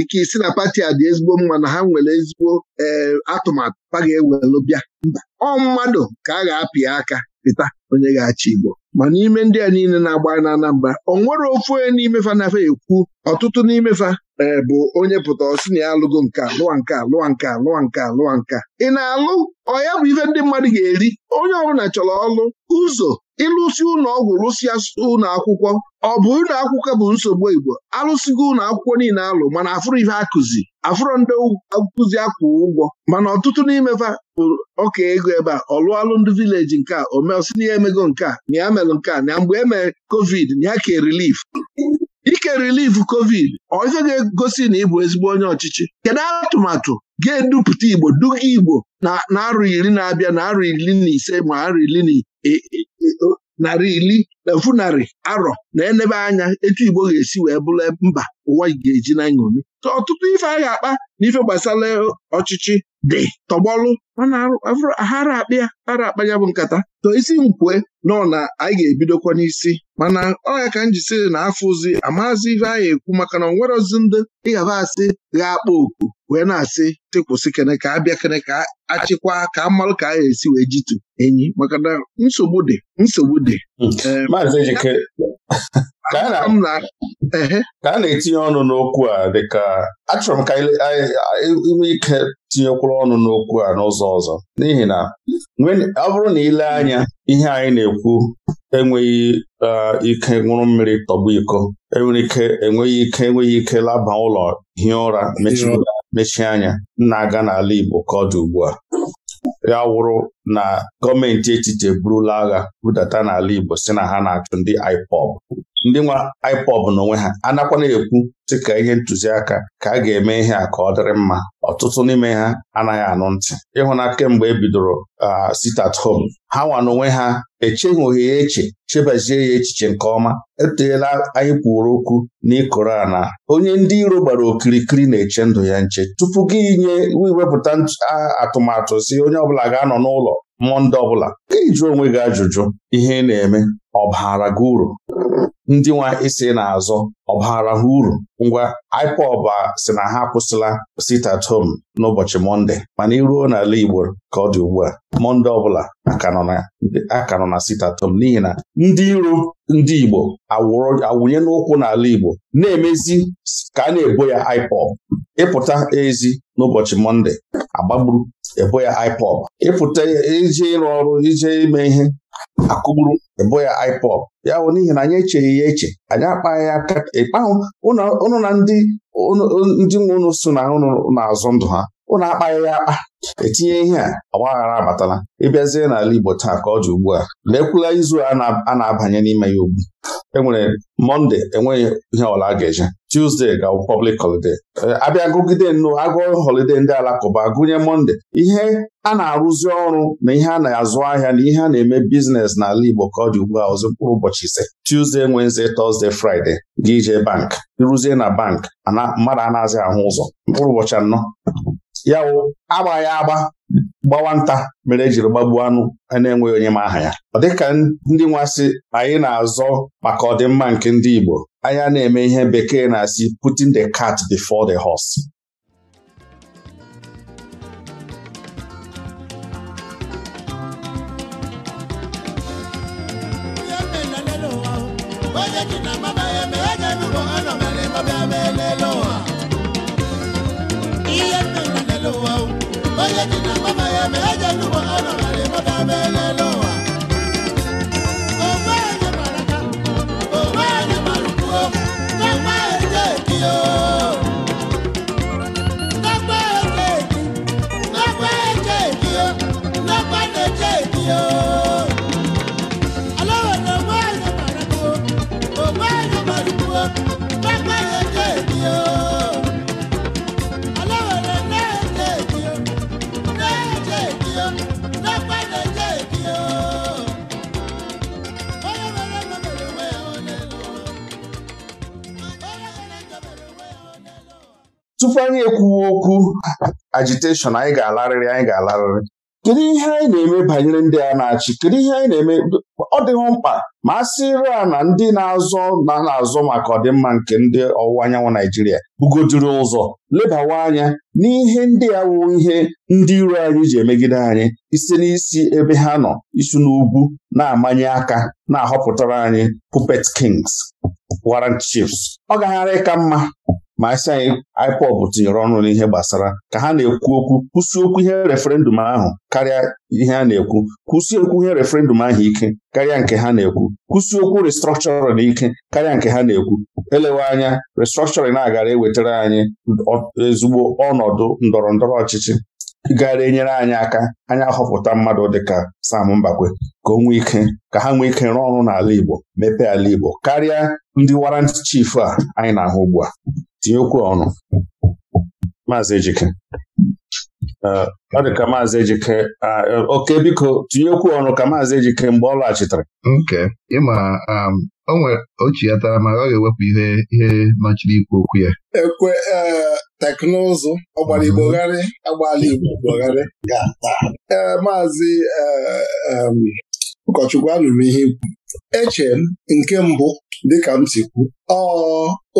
ike isi na pati a dị ezigbo mma na ha nwere ezigbo eh, atụmatụ ha ga-ewelụ bịa mba ọ mmadụ ka a ga-apị aka pịta onye ga-achị Igbo ma n'ime ndị a niile na-agba na Anambra onwere nwere ofu onye n'ime fa nafa ekwu ọtụtụ n'ime fa eh, bụ onye pụta ọsị na ya alụgo nka alụwa nka alụwa nka alụwa nka lụwa nka ị na-alụ ọ ya bụ ife ndị mmadụ ga-eri onye ọbụla chọrọ ọlụ ụzọ ịlụsi ụlọ ọgwụ lụsịa ụlọ akwụkwọ ọ bụ ụlọ akwụkwọ bụ nsogbu Igbo alụsigo ụlọ akwụkwọ niile alụ mana afụrụ ife akụzi afụrụ ndị akụzi akwụ ụgwọ mana ọtụtụ n'imefa bụ ọka ego ebe a ọ lụọ alụmdị vileji nke a omeosi na ya emego nke a na ya melụ nke a na mgbe e mere covid na ya ke rilif ike rilif covid ọ ife ga-egosi na ịbụ ezigbo onye ọchịchị kedu atụmatụ ga-edupụta Igbo duga Igbo na na-abịa na-arụ iri na-abịa na arụ iri na ise ma arọ iri narị iri na funarị arọ na enebe anya etu Igbo ga-esi wee bụrụ mba ụwa ga-eji na nṅomi ka ọtụtụ ife a ga-akpa na ife gbasara ọchịchị dị tọgbọlụ mana ahara akpa ara akpa ya bụ nkata to isi nkwue nọ na anyị ga-ebidokwa n'isi mana ọ ya ka m jisiri na afụzi amazi ife anyị ekwu maka na onwerozi ndị ịghaba asị ga-akpa oku wee na-asị tịkwụsị kene ka abịa kene ka achịkwa ka amalụ ka a ga-esi wee jitu enyi maka na nsogbu dị nsogbu dị Hmm. Ehm, Maazị Ejike ka a na-etinye ọnụ n'okwu a dịka achọrọ m ka inwe ike tinyekwuru ọnụ n'okwu a n'ụzọ ọzọ n'ihi na ọ bụrụ na ile anya ihe anyị na-ekwu enweghị ike nwụrụ mmiri tọgbu iko enwere ike enweghị ike enweghị ike laba ụlọ hie ụra mechie anya na-aga n'ala Igbo ka ọ dị ugbu a ya wụrụ na gọọmenti echiche eburula agha budata n'ala Igbo si na ha na-achụ ndị IPOB ndị nwa na n'onwe ha anakwana ekwu sị ka ihe ntụziaka ka a ga-eme ihe a ka ọ dịrị mma ọtụtụ n'ime ha anaghị anụ ntị ịhụna kemgbe e bidoro sit at home ha nwa n'onwe ha echeghị ya eche chebazie ya echiche nke ọma eteela anyị kwuru okwu n'ịkụrụ na onye ndị iro gbara okirikiri na-eche ndụ ya nche tupu gị nye iwepụta atụmatụ si onye ọbụla ga-anọ n'ụlọ mmụọ ndị ọbụla ka ị jụọ onwe gị ajụjụ ihe ị na-eme ọ baara gị uru ndị nwa isi na-azọ ọbara ha uru ngwa IPOB si na ha akwụsịla sit at home n'ụbọchị Mọnde mana iruo n'ala Igbo ka ọ dị ugbu a Mọnde ọbụla aka nọ na sit at home n'ihi na ndị iro ndị Igbo awụnye n'ụkwụ n'ala Igbo na-emezi ka a na-ebo ya IPOB ịpụta ezi n'ụbọchị Mọnde agbagburu ebo ya IPOB ịpụta ije ịrụ ọrụ ije ime ihe akụgburu ịbụ ya IPOB ya bụ n'ihi na anyị echeghị ya eche anyị akpaghị ya ịkpahụ ụnụ na ndị ndị nwe ụnụ so na ụnụ na-azụ ndụ ha ụnụ akpaghị ya akpa etinye ihe a ọgbaghara abatala ịbịazie n'ala Igbo taa ka ọ dị ugbu a lekwula izu a na-abanye n'ime ya ugbu e nwere Mọnde enweghị ihe ọla a ga-eje Tuesday ga-awụ public holiday abịa gụgide nnụ agụọ holide ndị alakụba gụnye Mọnde ihe a na-arụzi ọrụ na ihe a na-azụ ahịa na ihe a na-eme biznes n'ala Igbo ka ọ dị ugbu a ọzọ mkpụrụ ụbọchị ise Tuesday Wednesday Thursday Friday gị jee bank ịrụzie na bank mmadụ a na-azị ahụ ụzọ mkpụrụ ụbọchị anọ ya wụ agba ya agba gbawa nta mere ejiri gbagbuo anụ e na-enweghị onye ma aha ya ọ dịka ndị nwasị anyị na-azọ maka ọdịmma nke ndị Igbo anyị na-eme ihe bekee na-asị putting the cat before the horse ihe onye ji na mama ya ma eje n'ugbo ọ nọrọ na tupu anyị ekwuwe okwu agitation anyị ga-alarịrị anyị ga-alarịrị kedu ihe anyị na-eme banyere ndị a na-achị kedu ihe anyị na-eme ọ dịghị mkpa ma a sịrị a na ndị na-azọ na na-azọ maka ọdịmma nke ndị ọwụwa anyanwụ Naijiria bugodiri ụzọ lebawa anya n'ihe ndị a wụ ihe ndị iro anyị ji emegide anyị isi n'isi ebe ha nọ isi n'ugwu na-amanye aka na-ahọpụtara anyị puppet kings Wara chiefs ọ gagharị ịka mma ma asị anyị ipop tinyere ọnụ n'ihe gbasara ka ha na-ekwu okwu kwụsị okwu ihe referendum ahụ karịa ihe a na-ekwu kwụsị okwu ihe referendum ahụ ike karịa nke ha na-ekwu kwụsị okwu restructuring ike karịa nke ha na-ekwu elewe anya restructuring na-agara ewetara anyị ezigbo ọnọdụ ndọrọ ndọrọ ọchịchị gara enyere anyị aka anyị ahọpụta mmadụ dịka Sam Mbakwe ka onwe nwee ike ka ha nwee ike rụọ ọrụ n'ala Igbo mepee ala Igbo karịa ndị warant chief a anyị na-ahụ ugbu a Tinyekwuo ọnụ maazị Ejike ọ dị ka maazị Ejike e, oke biko tinyekwuo ọnụ ka maazị Ejike mgbe ọ lọghachitere nke ịma um, onwe ochi ya tara ma ọ ga-ewepụ ihe ihe nọchiri ikwu okwu ya ekwe e, teknụzụ ọgbara Igbo gharị agbala Igbo ga-ata ee maazị e, um, ụkọchukwu anụrụ ihe ikwu eche m nke mbụ dịka m si kwu ọ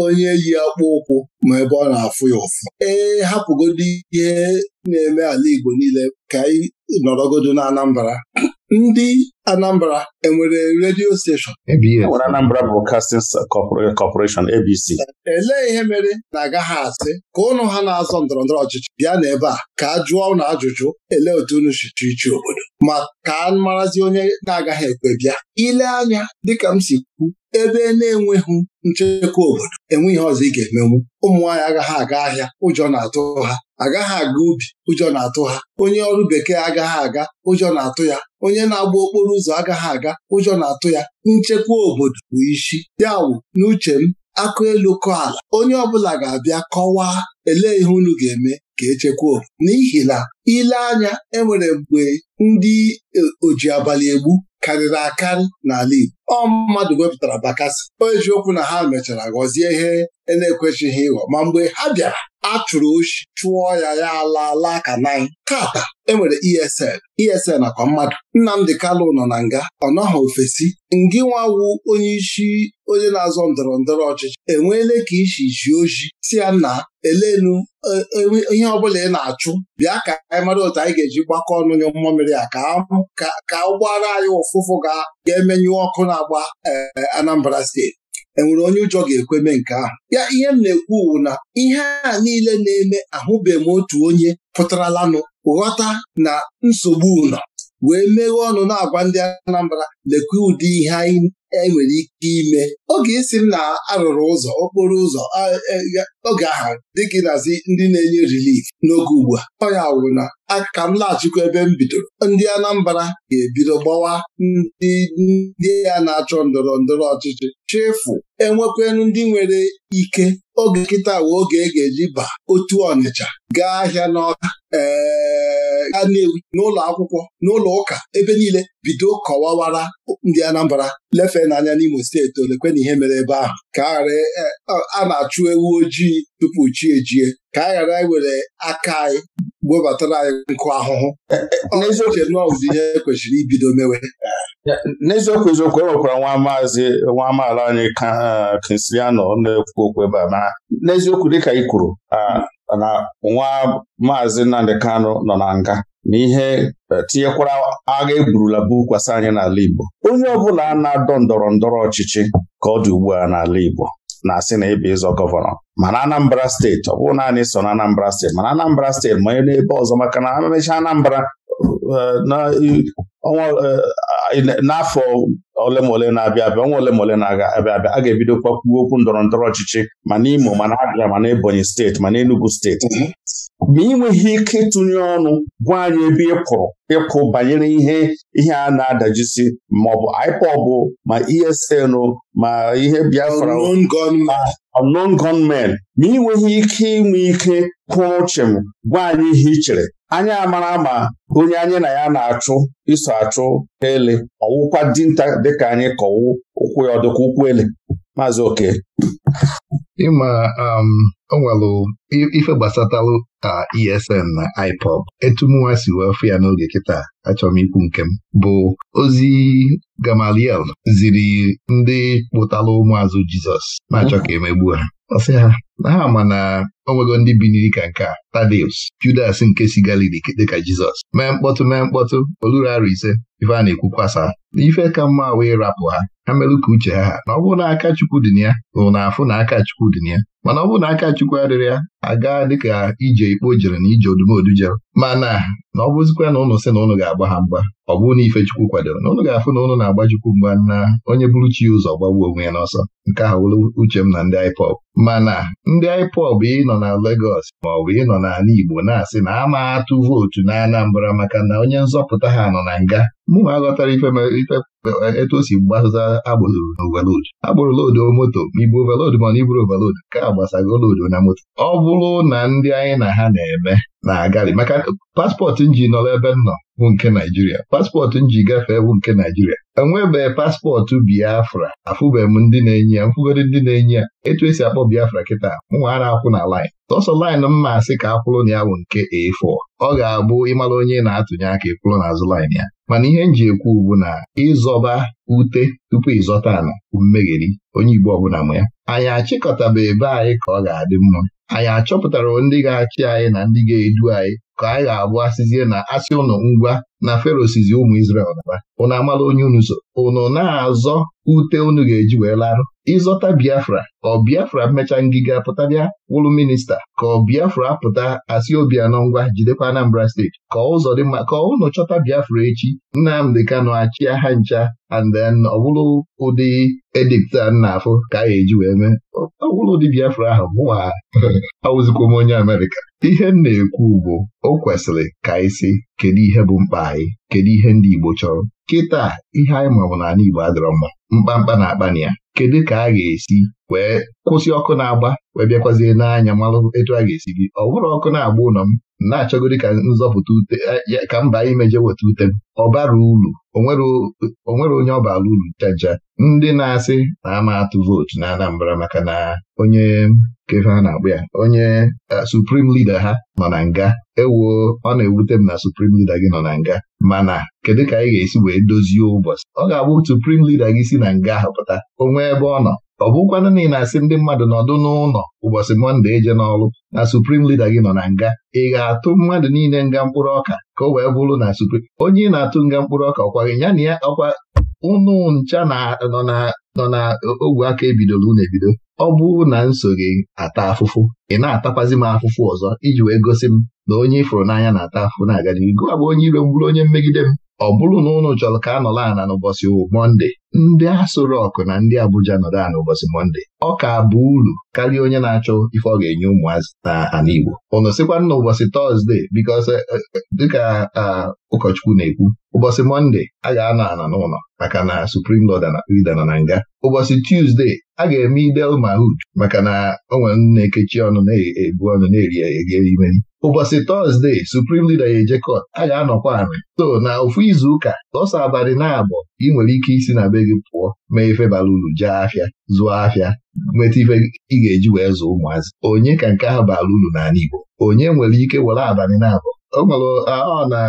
onye yi akpụ ụkwụ ma ebe ọ na-afụ ya ụfụ ee hapụgodi ihe na-eme ala Igbo niile ka anyị nọrọgodo na Anambra ndị Anambra enwere redio steshọn enwere Anambra Broadcasting Corporation ABC elee ihe mere na-agaghị asị ka ụnụ ha na-azọ ndọrọ ndọrọ ọchịchị bịa n'ebe a ka a jụọ ụnụ ajụjụ elee otu unu si ichi obodo ma ka a marazi onye na-agaghị ekwe bịa ile anya dịka m si kwu ebe na-enweghị nchekwa obodo enwe ihe ọzọ ị ga-emenwu ụmụnwaanyị agaghị aga ahịa ụjọ na-atụ ha agaghị aga ubi ụjọ na-atụ ha onye ọrụ bekee agaghị aga ụjọ na-atụ ya onye na-agba okporo ụzọ agaghị aga ụjọ na-atụ ya nchekwa obodo bụ isi ya wụ n'uche m akụ elu kọ ala onye ọbụla ga-abịa kọwaa ele ihe unu ga-eme ka echekwa obodo n'ihi na ile anya enwere mgbe ndị e, oji abalị egbu karịrị akarị n'ala Igbo ọ mmadụ wepụtara bakasị o eziokwu na ha mechara ghọzie ihe e na-ekwechighị ịghọ ma mgbe ha bịara a chụrụ oshi chụọ ya ya ala ala ka nanyị tata enwere ESN ESL akwa mmadụ Nnamdị Kalụ nọ na nga ọ nọghị ofesi ngị nwawu onye isi onye na-azọ ndọrọ ndọrọ ọchịchị enweele ka isi ji oji si ya na elenu e, e, ihe ọbụla ị na-achụ bịa ka anyị mara otu anyị ga-eji gbakọ ọnụ nye mmamịrị a ka ụgbọala anyị ụfụfụ ga-emenyụ ọkụ na-agba e, Anambra steeti enwere onye ụjọ ga-ekwe nke ahụ ya ihe m na-ekwu wu na ihe a niile na-eme ahụbeghị m otu onye pụtaralanụ ghọta na nsogbu ụlọ wee meghee ọnụ na-agwa ndị Anambra lekwa ụdị ihe anyị enwere ike ime oge isi m na arụrụ ụzọ okporo ụzọ e, oge ahụ dịka nazi ndị na-enye rilif n'oge ugbu a Onye wụrụ na aka m laghachikwa ebe m bidoro ndị Anambra ga-ebido gbawa ndị ndị ya na-achọ ndọrọ ndọrọ ọchịchị chefu enwekwenu ndị nwere ike oge nkịta wee oge e ga-eji ba otu Ọnịcha gaa ahịa n'ọka ee ga n'ụlọ akwụkwọ n'ụlọ ụka ebe niile bido kọwawara ndị Anambra lefe n'anya n'Imo steeti olekwe na ihe mere ebe ahụ ka e, a na-achụ ewu ojii tupu chi ejie ka a ghara iwere aka anyị webatara anyị nkụ ahụhụ e, e, n'eziokwu n'ọzọ ihe kwesịrị ibido mewe n'eziokwu eziokwu enwekwara nwa maazị nwa amaala anyị Kinsiano na-ekwu okwu ebe a n'eziokwu dịka ị kwuru na nwa maazị Nnamdị Kano nọ na nga N'ihe e, tinyekwara agha eburula bụ kwasa anyị n'ala Igbo onye ọbụla na-adọ ndọrọ ndọrọ ọchịchị ka ọ dị ugbu a n'ala Igbo na-asị na ịbụ ịzọ gọvanọ mana Anambra steeti ọ bụrụ naanị so na Anambra steeti mana Anambra steeti manye n'ebe ọzọ maka na emechaa Anambra e, e, n'afọ ole ma ole na-abịa abịa ọnwa ole ma ole na-abịa abịa a ga-ebido kwakwu okwu ndọrọ ndọrọ ọchịchị ma n'Imo ma na Abịa ma na Ebonyi steeti ma na Enugu steeti mm-hmm. ma ị nweghị ike ịtụnye ọnụ gwa anyị ebe ị ịkwụrụ ịkụ banyere ihe ihe a na-adajisi maọbụ IPOB ma ESN ma ihe Biafra unknown gunmen ma ị nweghị ike inwe ike kwụrụ chịm gwa anyị ihe ị chere anyị amara ma onye anyị na ya na-achụ iso achụ ele ọwụkwa dinta dịka anyị kọwụ ụkwụ ya ọdịkwa ụkwụ ele maazị oke ịma um, o nwelụ ife gbasatalụ ka ESN na IPOB etumnwa si wee fụ ya n'oge kịta achọrọ ikwu nke m bụ ozi Gamaliel ziri ndị kpụtala ụmụazụ Jizọs na-achọ ka emegbu ha ha na ha ma na onwego ndị biniri ka nke a Tadeus Judas nke si Galili dịka Jizọs mee mkpọtụ mee mkpọtụ oluru arụ ise ife a na-ekwu kwasa n'ife ka mma wee rapụ ha ha merụ ka uche ha na ọ bụrụ na aka Chukwu dị ya bụ na afụ na aka Chukwu dị ya mana ọ bụrụ na aka Chukwu adịrị ya aga dịka ije ikpo jere na ije odumodu jere mana na ọ bụzikwa na ụnụ sị na ụnụ ga-agba ha mgba ọ bụ na ife Chukwu kwadoro na ụnụ ga-afụ na ụnụ na-agba Chukwu mgba na onye bụrụ chi ụzọ gbagbuo onwe ya n'ọsọ nke ahụ uche m na ndị IPOB mana ndị IPOB ị nọ na Legọs maọbụ ịnọ n'ala Igbo na-asị na ama atụ vootu na Anambra maka na onye nzọpụta ha nọ na nga mụnwa aghọtara ife etu o si gbasata agbụrụ n'ovalod agbụrụ loodu moto ma ibu ovalod ma na iburu ovalod ka agbasago loodu na moto ọ bụrụ na ndị anyị na ha na-eme na-agali maka paspọtụ nji nọrọ ebe nọ bụ nke Naijiria paspọtụ nji gafee bụ nke Naijiria enwebeghị paspọtụ Biafra afụbeghị m ndị na-enye ya mfụgodi ndị na-enye ya etu esi akpọ Biafra kịta mụnwa a na-akwụ na laịn sọsọ laịnụ mma asị ka akwụrụ na ya bụ nke A4 ọ ga-abụ ịmara onye na-atụnye aka ịkwụrụ n'azụ lin ya mana ihe m ji ekwu bụ na ịzọba ute tupu ịzọta ala mmegheri onye Igbo ọbụla ma ya anyị achịkọtaba ebe anyị ka ọ ga-adị mma anyị achọpụtara ndị ga-achị anyị na ndị ga-edu anyị ka anyị ga-abụ asịzie na asị ụnụ ngwa na ferosizi ụmụ Izrel naba ụnụ amala onye unu so ụnụ na-azọ ute unu ga-eji wee larụ ịzọta Biafra ọ Biafra mechaa ngịga pụtara wụlụ minista ka ọ Biafra pụta asị obi anọ ngwa jidekwa Anambra steeti ka ụzọ dị mma ka ụnụ chọta Biafra echi Nnamdị Kanụ achịa ha ncha and then ọ ụdị edipta a na-afụ ka a ga-eji wee mee ọwụlụ ụdị Biafra ahụ mụwa m onye Amerịka ihe m na-ekwu ugbo o kwesịrị ka anyị sị kedu ihe bụ mkpa anyị kedu ihe ndị Igbo chọrọ kịta ihe anyị mabụ n'ala Igbo adịrọ mma mkpamkpa na akpa na ya kedu ka a ga-esi wee kwụsị ọkụ na-agba wee bịakwazie n'anya malụ etu a ga-esi gị ọ bụrụ ọkụ na-agba ụlọ m na achọgori ka nzọpụta ute e, ka mba anyị meje weta ute m ọ bara uru onwere onye ọ bara uru chaja ndị na-asị na ama atụ vootu na Anambra maka na onye kefe a na-akpụ ya onye suprim lida ha nọ na nga ewoo ọ na-ewute m na suprim lida gị nọ na nga mana kedu ka anyị ga-esi wee dozie ụbọchị ọ ga-abụ suprim lida gị si na nga hapụta onwe ebe ọ nọ ọ bụkwanụ na ị na-asị ndị mmadụ nọdụ n'ụlọ ụbọchị mọnde eje n'ọrụ na suprim lida gị nọ na nga ị ga-atụ mmadụ niile nga mkpụrụ ọka ka o wee bụrụ na suprim onye ị na-atụ nga mkpụrụ ọka ọkwa gị ya na ya ọkwa ụnụ ncha nọ na ogwe aka ebidoro unu ebido ọ bụrụ na m gị ata afụfụ ị na-atakwazi m afụfụ ọzọ iji wee gosi m na onye ifụrụ n'anya na-ata afụfụ na-aga n'ihu gụwa bụ onye ire m onye mmegide m ọ bụrụ na ụnụ chọrọ ka a nọrọ ana n'ụbọchị monde ndị Aso Rock na ndị Abuja nọrọ ana ụbọchị monde ọ ka bụ uru karịa onye na-achọ ife ọ ga-enye ụmụazị na Igbo ụnụ sịkwa na ụbọchị tọzdee eh, eh, dịka ụkọchukwu na-ekwu ụbọchị monde a ga-anọ ana n'ụlọ maka na Suprim Lord na na nga ụbọchị tuzde a ga-eme Eid Mahud maka na onwere nwere na-ekechi ọnụ na-ebu ọnụ na-eri e, eri ụbọchị Tọzdee, suprim lida ejekọt a ga-anọkwa anị so na ofu izuụka lọsa abalị na-abọ ị nwere ike isi na be gị pụọ mee ife bara uru jee afịa zụọ afịa nweta ife ị ga-eji wee zụọ ụmụazị onye ka nke ahụ bara uru n'ala Igbo onye nwere ike were abalị na-abọ o nwere ọ na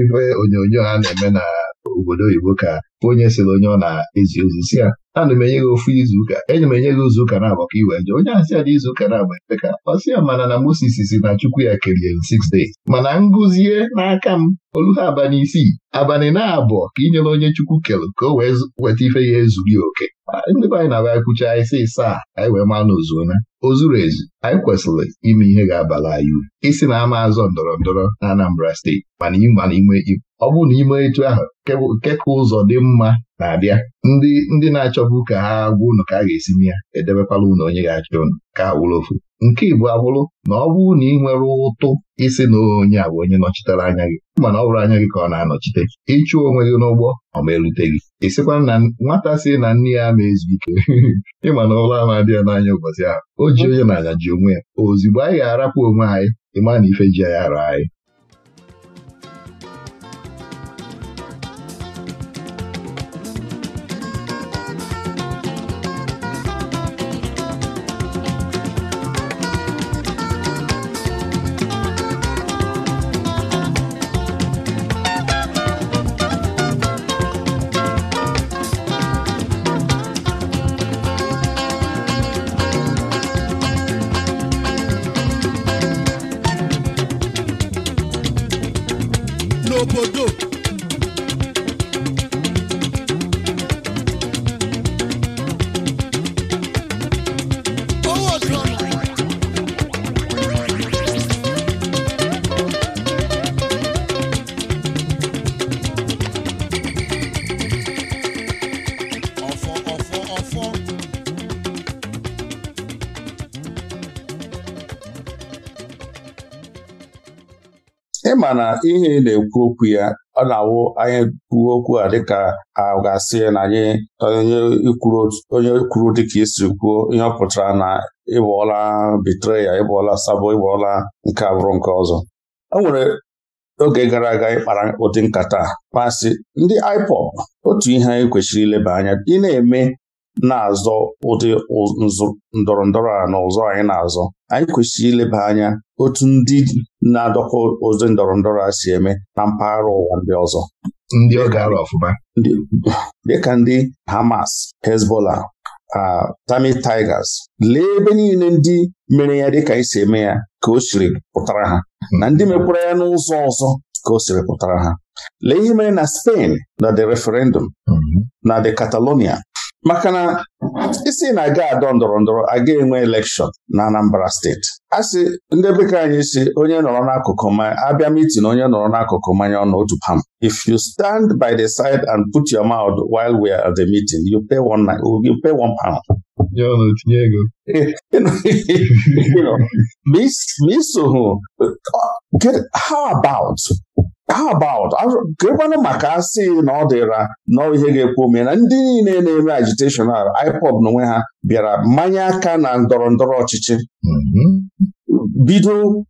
ife onyonyo a na-eme na obodo oyibo ka bụ onye sịrị onye ọ na-ezi ozi si ya ana m enye gị ofu izuụka enye m enye gị ụka na-abụ ka iwe jee onye asị ya na izuụka na-agba epeka ọ sị ya mana na Moses si na Chukwu ya kerie m six days mana ngụzie n'aka m olu ha abalị isii abalị na-abụ ka inyere onye Chukwu kelụ ka o wee weta ife ya ezughị oke ndị be anyị na-abịa kwucha anyị sị saa anyị wee maa na ozuona o zuru ezu anyị kwesịrị ime ihe ga-abala anyị uru isi na ama azọ ndọrọ ndọrọ na Anambra steeti mana ịma ime ọ bụrụ na ime etu ahụ nke ka ụzọ dị mma na-abịa ndị ndị na-achọbụ ka ha gwa ụnụ ka a ga-esi ya edebekwala ụnụ onye ga-achọ ụnụ ka ha wụrụ ofu nke Igbo abụrụ na ọ bụrụ na ị nwere ụtụ isi na onye a bụ onye nọchitere anya gị mana ọ bụrụ anya gị ka ọ na-anọchite ịchụ onwe gị n'ụgbọ ọ ma elute gị ịsịkwa na nwata si na nne ya na ezu ike ịma na ụlọ ama ya n'anya ụbọchị ahụ o ji onye na-anya ji onwe ya ozugbo anyị ga-arapụ onwe anyị ịma na ife ji ya ara anyị mana ihe ị na-ekwu okwu ya ọ na-awụ anyị kwuo okwu a dịka a ga-asị na anyị onye kwuru dịka isi kwuo ihe ọ pụtara na ịbọọla bitreya ịbọọla sabo ịbọọla nke abụrụ nke ọzọ o nwere oge gara aga ịkpara ụdị nkata kpasị ndị IPOB otu ihe anyị kwesịrị ileba anya ị na-eme na-azọ ụdị ndọrọ ndọrọ a na ụzọ anyị na-azọ anyị kwesịrị ileba anya otu ndị na-adọkọ ozi ndọrọ ndọrọ a si eme na mpaghara ụwa ndị ọzọ ndị ọ gara ọfụma dịka ndị Hamas Hezbollah Tami Tigers lee ebe niile ndị mere ya dịka isi eme ya ka o siri pụtara ha na ndị mekwara ya n'ụzọ ọzọ ka o siri pụtara ha lee ihe mere na Spain na the referendum mhm. na the Catalonia maka na isi na-aga adọ ndọrọ ndọrọ aga enwe elekshọn na Anambra steeti a sị ndị bekee anyị si onye nọrọ n'akụkụ mmanya abịa mitin onye nọrọ n'akụkụ mmanya ọnụ otu pam if you stand by the side and put your mouth while we are at the meeting you pay one, you pay one pound ya ọ na-etinye ego how about how about gịkwanụ maka asị na ọ dịra nọọ ihe ga-ekwu ome ndị niile na-eme agiteshọn iPod, IPOB onwe ha bịara mmanye aka na ndọrọ ndọrọ ọchịchị mhm. bido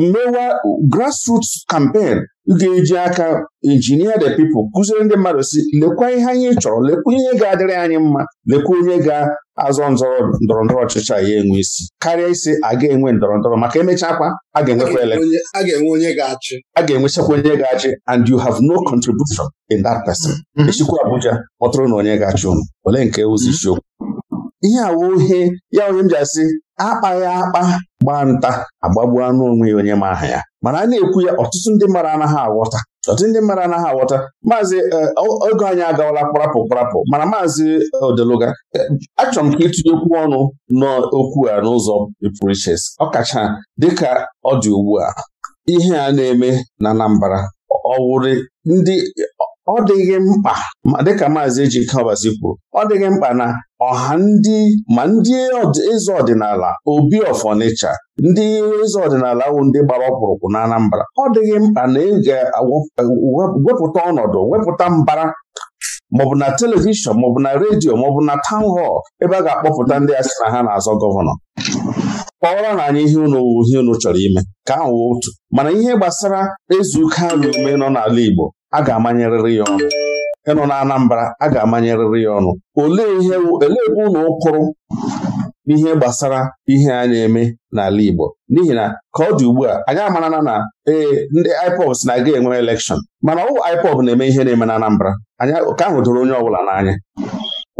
mewa grassroots campaign ga-eji aka injinia the people kụziere ndị mmadụ si lekwa ihe anyị chọrọ lekwa ihe ga-adịrị anyị mma lekwa onye ga-azọ ndọrọ ndọrọ ọchịchị ya enwe isi karịa isi a ga-enwe ndọrọ ndọrọ maka emechakwa a ga-enwekwa ele a ga-enwechakwa onye ga-achị and you have no contribution in that person mm-hmm. echikwa Abuja kpọtụrụ na onye ga-achị ụmụ ole nke ụzọ mm-hmm. isiokwu ihe awụ ihe ya onye m ji asị akpaghị akpa gbaa nta agbagbu anụ onwe ya onye ma aha ya mana a na-ekwu ya ọtụtụ ndị mmadụ anaghị aghọta ọtụtụ ndị mmadụ anaghị aghọta maazị e, oge anyị agawala kparapụ kparapụ mana maazị odeluga e, achọrọ m ka okwu ọnụ n'okwu a n'ụzọ pụrụ iches ọkacha dịka ọ dị ugbu a ihe a na-eme na Anambra ọwụrị ndị ọ dịghị mkpa dịka maazị Ejike Ọbazi kwuru ọ dịghị mkpa na ọha ndị ma ndị eze ọdịnala obi of Onitsha ndị eze ọdịnala wụ ndị gbara ọkpụrụkpụ na ọ dịghị mkpa na ị ga-wepụta ọnọdụ wepụta mbara maọbụ na telivishọn maọbụ na redio maọbụ na taụn họl ebe a ga-akpọpụta ndị a sị na ha na-azọ gọvanọ kpọrọ na anyị ihe unu ihe unu chọrọ ime ka ahụ otu mana ihe gbasara ezuka na ume nọ n'ala Igbo a ga-amanyerịrị ya ọnụ ịnụ na Anambra a ga-amanyerịrị ya ọnụ olee ihe olee ebe ụlọ ụkụrụ n'ihe gbasara ihe a eme n'ala Igbo n'ihi na ka ọ dị ugbu a anyị amarana na ee ndị IPOB na-aga enwe elekshọn mana ọwụ IPOB na-eme ihe na-eme na Anambra anya ka ahụ doro onye ọbụla n'anya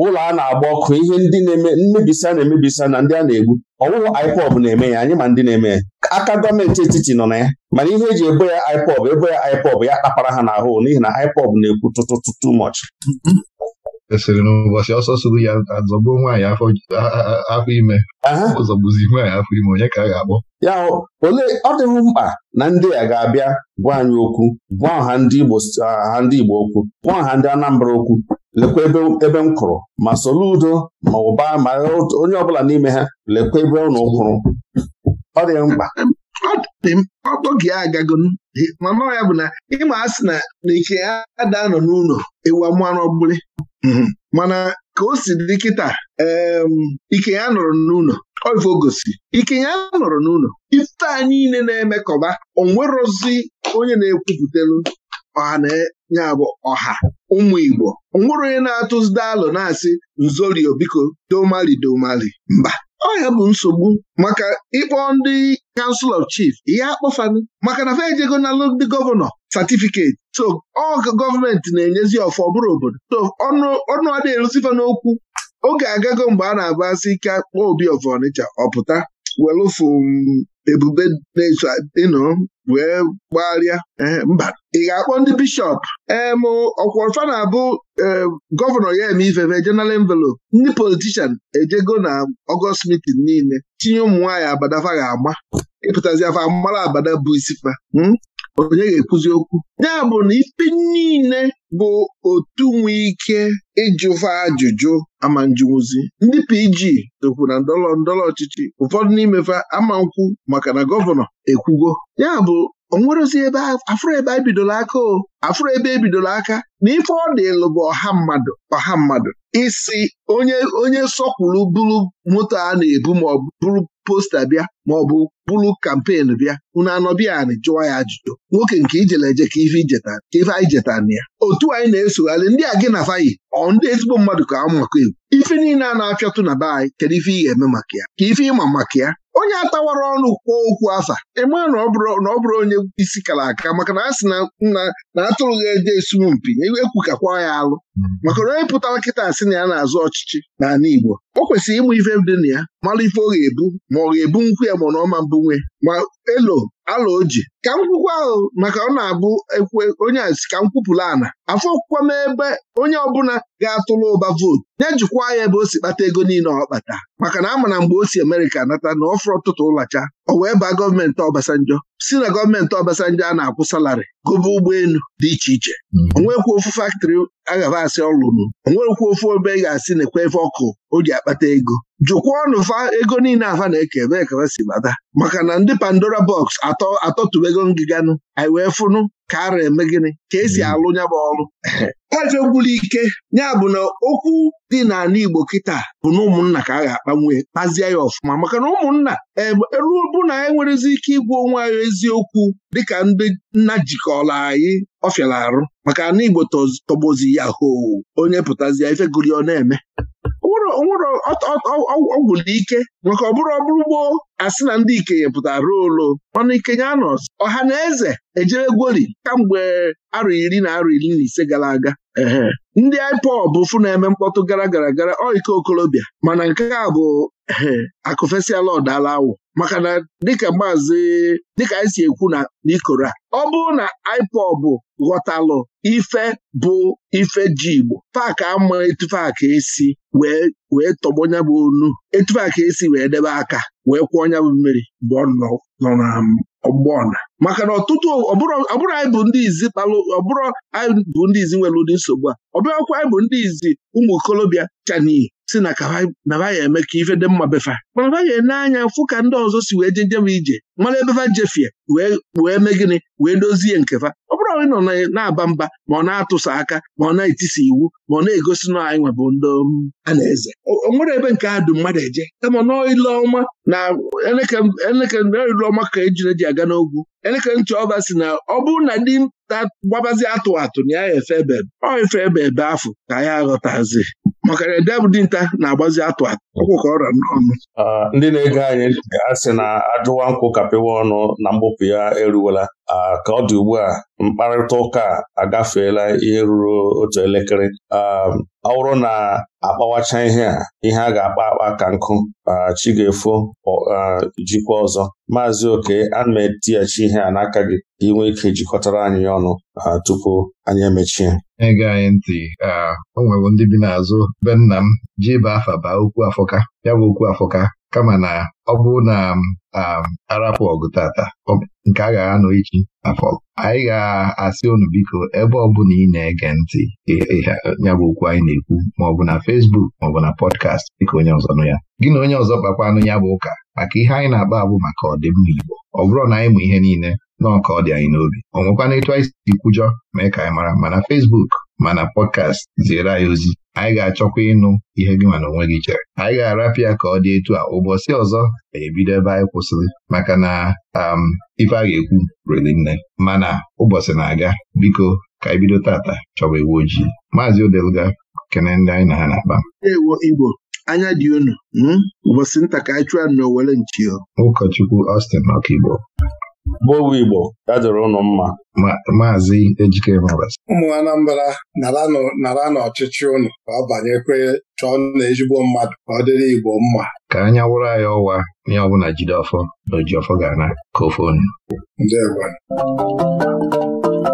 ụlọ a na-agba ọkụ ihe ndị na-eme mmebisa na emebisa na ndị a na-egbu ọwụwụ IPOB na-eme ya anyị ma ndị na-eme ya aka gọọmenti etiti nọ na ya mana ihe eji ebo ya IPOB ebo ya IPOB ya kpapara ha n'ahụ n'ihi na IPOB na-ekwu tụtụtụ too much esiri n'ụbọchị ọsọ sụrụ ya azọgbuo nwaanyị afọ ime ọzọgbuzi nwaanyị afọ ime onye ka a ga ya ole ọ dịghị mkpa na ndị a ga-abịa gwa anyị okwu gwa ọha ndị Igbo ha ndị Igbo okwu gwa ọha ndị Anambra okwu lekwa ebe m kụrụ ma udo ma ụba ma onye ọbụla n'ime ha lekwa ebe ụnụ kwụrụ ọ dị mkpa oge ya agago mana ya bụ na ịma asị na a ada nọ n'ụlọ ewu mmanụ ọbụla mhm. mana ka o si dị kịta ike ya nọrọ n'ụlọ oife gosi ike ya nọrọ n'ụlọ ife a niile na-emekọba onwerozi onye na-ekwupụtalụ ọha ya bụ ọha ụmụ Igbo nwụrụ onye na-atụzide alụ na-asị nzorio biko domali domali mba ọ ya bụ nsogbu maka ịkpọ ndị Council of chief ihe akpọfanụ maka na fa ejego nalụ ndị gọvanọ satifiketi so ọ gọọmenti na-enyezi ọfọ bụrụ obodo so ọnụ adị n'okwu oge agago mgbe a na-abụ ike akpọ obi of Ọnịcha ọpụta welụfụ ebube na-eso ịnụ wee gbagharịa eh, mba ị ga-akpọ ndị bishọp em eh, ọkwọrfa na-abụ eh, gọvanọ ya eme ifefe general envelope ndị politishan ejego na ọgọst mitin niile tinye ụmụ nwaanyị abadafa ga-ama ịpụtazi afọ mara abada bụ isi fa onye ga-ekwuzi okwu ya bụ na ikpe niile bụ otu nwee ike ịjụva ajụjụ ama ndị PG ekwu na ndọrọ ndọrọ ọchịchị ụfọdụ n'imefe ama nkwụ maka na gọvanọ ekwugo ya bụ onwerozi ebe afụrụ ebe ebidoro aka o afụrụ ebe ebidoro aka na ife ọ dịlụ bụ ọha mmadụ ọha mmadụ isi onye onye sọkwuru bụrụ moto a na-ebu ma ọ bụrụ posta bịa ma ọ bụ bụrụ kampen bịa unu anọbianị jụwa ya ajụjụ nwoke nke ijele eje ka ife ijeta ka ife anyị jetana ya otu anyị na-esogharị ndị a gị na fayi ọ ndị ezigbo mmadụ ka amụ maka egwu ife niile a na-apịatụ na be anyị kedu ife ị ga-eme maka ya ka ife ịma maka ya onye atawara ọnụ kwuo okwu afa ịma na ọ bụrụ onye isi kara aka maka na a sị na nna na atụrụ ha eje esumu mpi e ekwukakwa ya alụ hmm. maka na onye pụtara nkịta asị na ya na-azụ ọchịchị n'ala Igbo o kwesịrị ịmụ ife dị na ya mara ife ọ ga-ebu ma ọ ga-ebu nkwụ ya ya ma na ọma mbụ nwe ma elo ala oji ka m ahụ maka ọ na-abụ onye a si ka m kwupụla ana afọ okwukwa m ebe onye ọbụla ga-atụla ụba vootu nye jikwa ya ebe o si kpata ego niile ọ kpata maka na ama na mgbe o si Amerịka nata na fụrụ ọtụtụ ụlacha o wee baa gọọmenti Obasanjo si na gọọmenti Obasanjo a na-akwụ salarị gobe ụgbọelu dị iche iche onwekwu hmm. ofu faktịrị agaba asị ọlụnụ onwekwu ofu ebe ị ga-asị na ekwe efe ọkụ o ji akpata ego jụkwa ọnụ fa ego niile afa na-eke ebe ekebe si bata maka na ndị Pandora a Atọ atọtubego ngịganụ anyị wee fụnụ ka ara eme gịnị ka esi hmm. alụ ya bụ ọrụ ajọ gwụrụ ike ya bụ na okwu dị n'ala Igbo kịta bụ na ụmụnna ka a ga-akpanwe kpazie ya ọfụma maka na ụmụnna eruo bụ na anyị e nwerezi ike ịgwa onwe anyị eziokwu dịka ndị nna jikọrọ anyị ọfịara arụ maka na Igbo tọgbozi ya hoo onye pụtazi ife ọ na-eme ọgwụlụ ike maka ọbụrụ ọbụrụ gboo asị na ndị ikenye pụtara ruo olo ọnụ ikenye anọ ọha na eze ejere gwori kamgbe arọ iri na arọ iri na ise gara aga ndị IPOB bụ na-eme mkpọtụ gara gara gara ọ ike mana nke a bụ akụfesiala ọdala awụ maka na dịka maazị dịka anyị si ekwu na n'ikoro a ọ bụrụ na IPOB ghọtalụ ife bụ ife ji Igbo Paaki ama etufe aka esi wee tọgbọ nya bụ onu etufe aka esi wee debe aka wee kwụọ nya bụ mmiri mgbe ọ nọ na ọgbọna maka na ọtụtụ ọbụrụ anyị bụ ndị izi kpalụ ọbụrụ anyị bụ ndị izi nwere ụdị nsogbu a ọbụrụkwa anyị bụ ndị izi ụmụ okolobịa chaniyi si na kaba eme ka ife dị mma befa mana ba ene anya fụ ka ndị ọzọ si wee njem ije mara ebefa jefie wee mee gịnị wee dozie nkefa ndị nọ na-aba mba ma ọ na-atụsa aka ma ọ na-etisa iwu ma ọ na-egosi na anyị nwebụ ndị um, a na-eze o nwere ebe nke a mmadụ eje kama n'ile na elekere ka ejiri eji aga n'ogwu elekere ntị ọba si na ọ bụrụ na ndị gbabazi atụ atụ na ya efe ebe ọ efe ebe ebe afọ ka ya aghọtazi maka na ede bụ dinta na-agbazi atụ atụ ọkwụkọ ọrịa n'ọnụ ndị na-ege anyị ga-asị na ajụwa nkwụ kapịwa ọnụ na mgbupụ ya eruwela ka ọ dị ugbu a mkparịta ụka agafeela ihe ruru otu elekere ọ bụrụ na akpawacha ihe a ihe a ga-akpa akpa ka nkụ chi ga-efo jikwa ọzọ maazị oke ana m etighachi ihe a n'aka gị inwe ike jikọtara anyị ọnụ tupu anyị emechie ege anyị ntị o nwewo ndị bi n'azụ be nna m ji afa baa okwu afọka ya bụ okwu afọka kama na ọ bụ na um, arapụ ọgụ tata nke a ga-anọ echi afọ anyị ga-asị unu biko ebe ọ ọbụla ị na-ege ntị nyabụ okwu anyị na-ekwu maọbụ na fesbuk maọbụ na pọdkast dịka onye ọzọ nụ ya gị na onye ọzọ kpakwanụ ya bụ ụka maka ihe anyị na-akpa abụ maka ọdịmma Igbo ọ bụrụ na anyị mụ ihe niile nọọ ka ọ dị anyị n'obi ọ nwekwana etu anyị si kwujọ mee ka anyị mara mana fesbuk mana pọdkast ziere anyị ozi anyị ga-achọkwa ịnụ ihe gị mana onwe gị chere anyị ga-arapịa ka ọ dị etu a ụbọchị ọzọ ebido ebe anyị kwụsịrị maka na um, ife a ga-ekwu riri nne mana ụbọchị na-aga biko ka anyị bido tata chọba iwu ojii maazị Odeluga kene ndị anyị na ha na-akpa Igbo anya dị unu hmm? ụbọchị nta ka anyị ụkọchukwu Austin ọkaigbo Bụowe Igbo ya ụnụ mma maazị Ejike ụmụ Anambra nara n'ọchịchị ụnụ ka ọ banyekwe chọọ na ezigbo mmadụ ka ọ dịrị Igbo mma ka anya wụrụ anyị ọwa onye ọbụla jide ọfọ na ojiọfọ ọfọ ga-ana ka ofe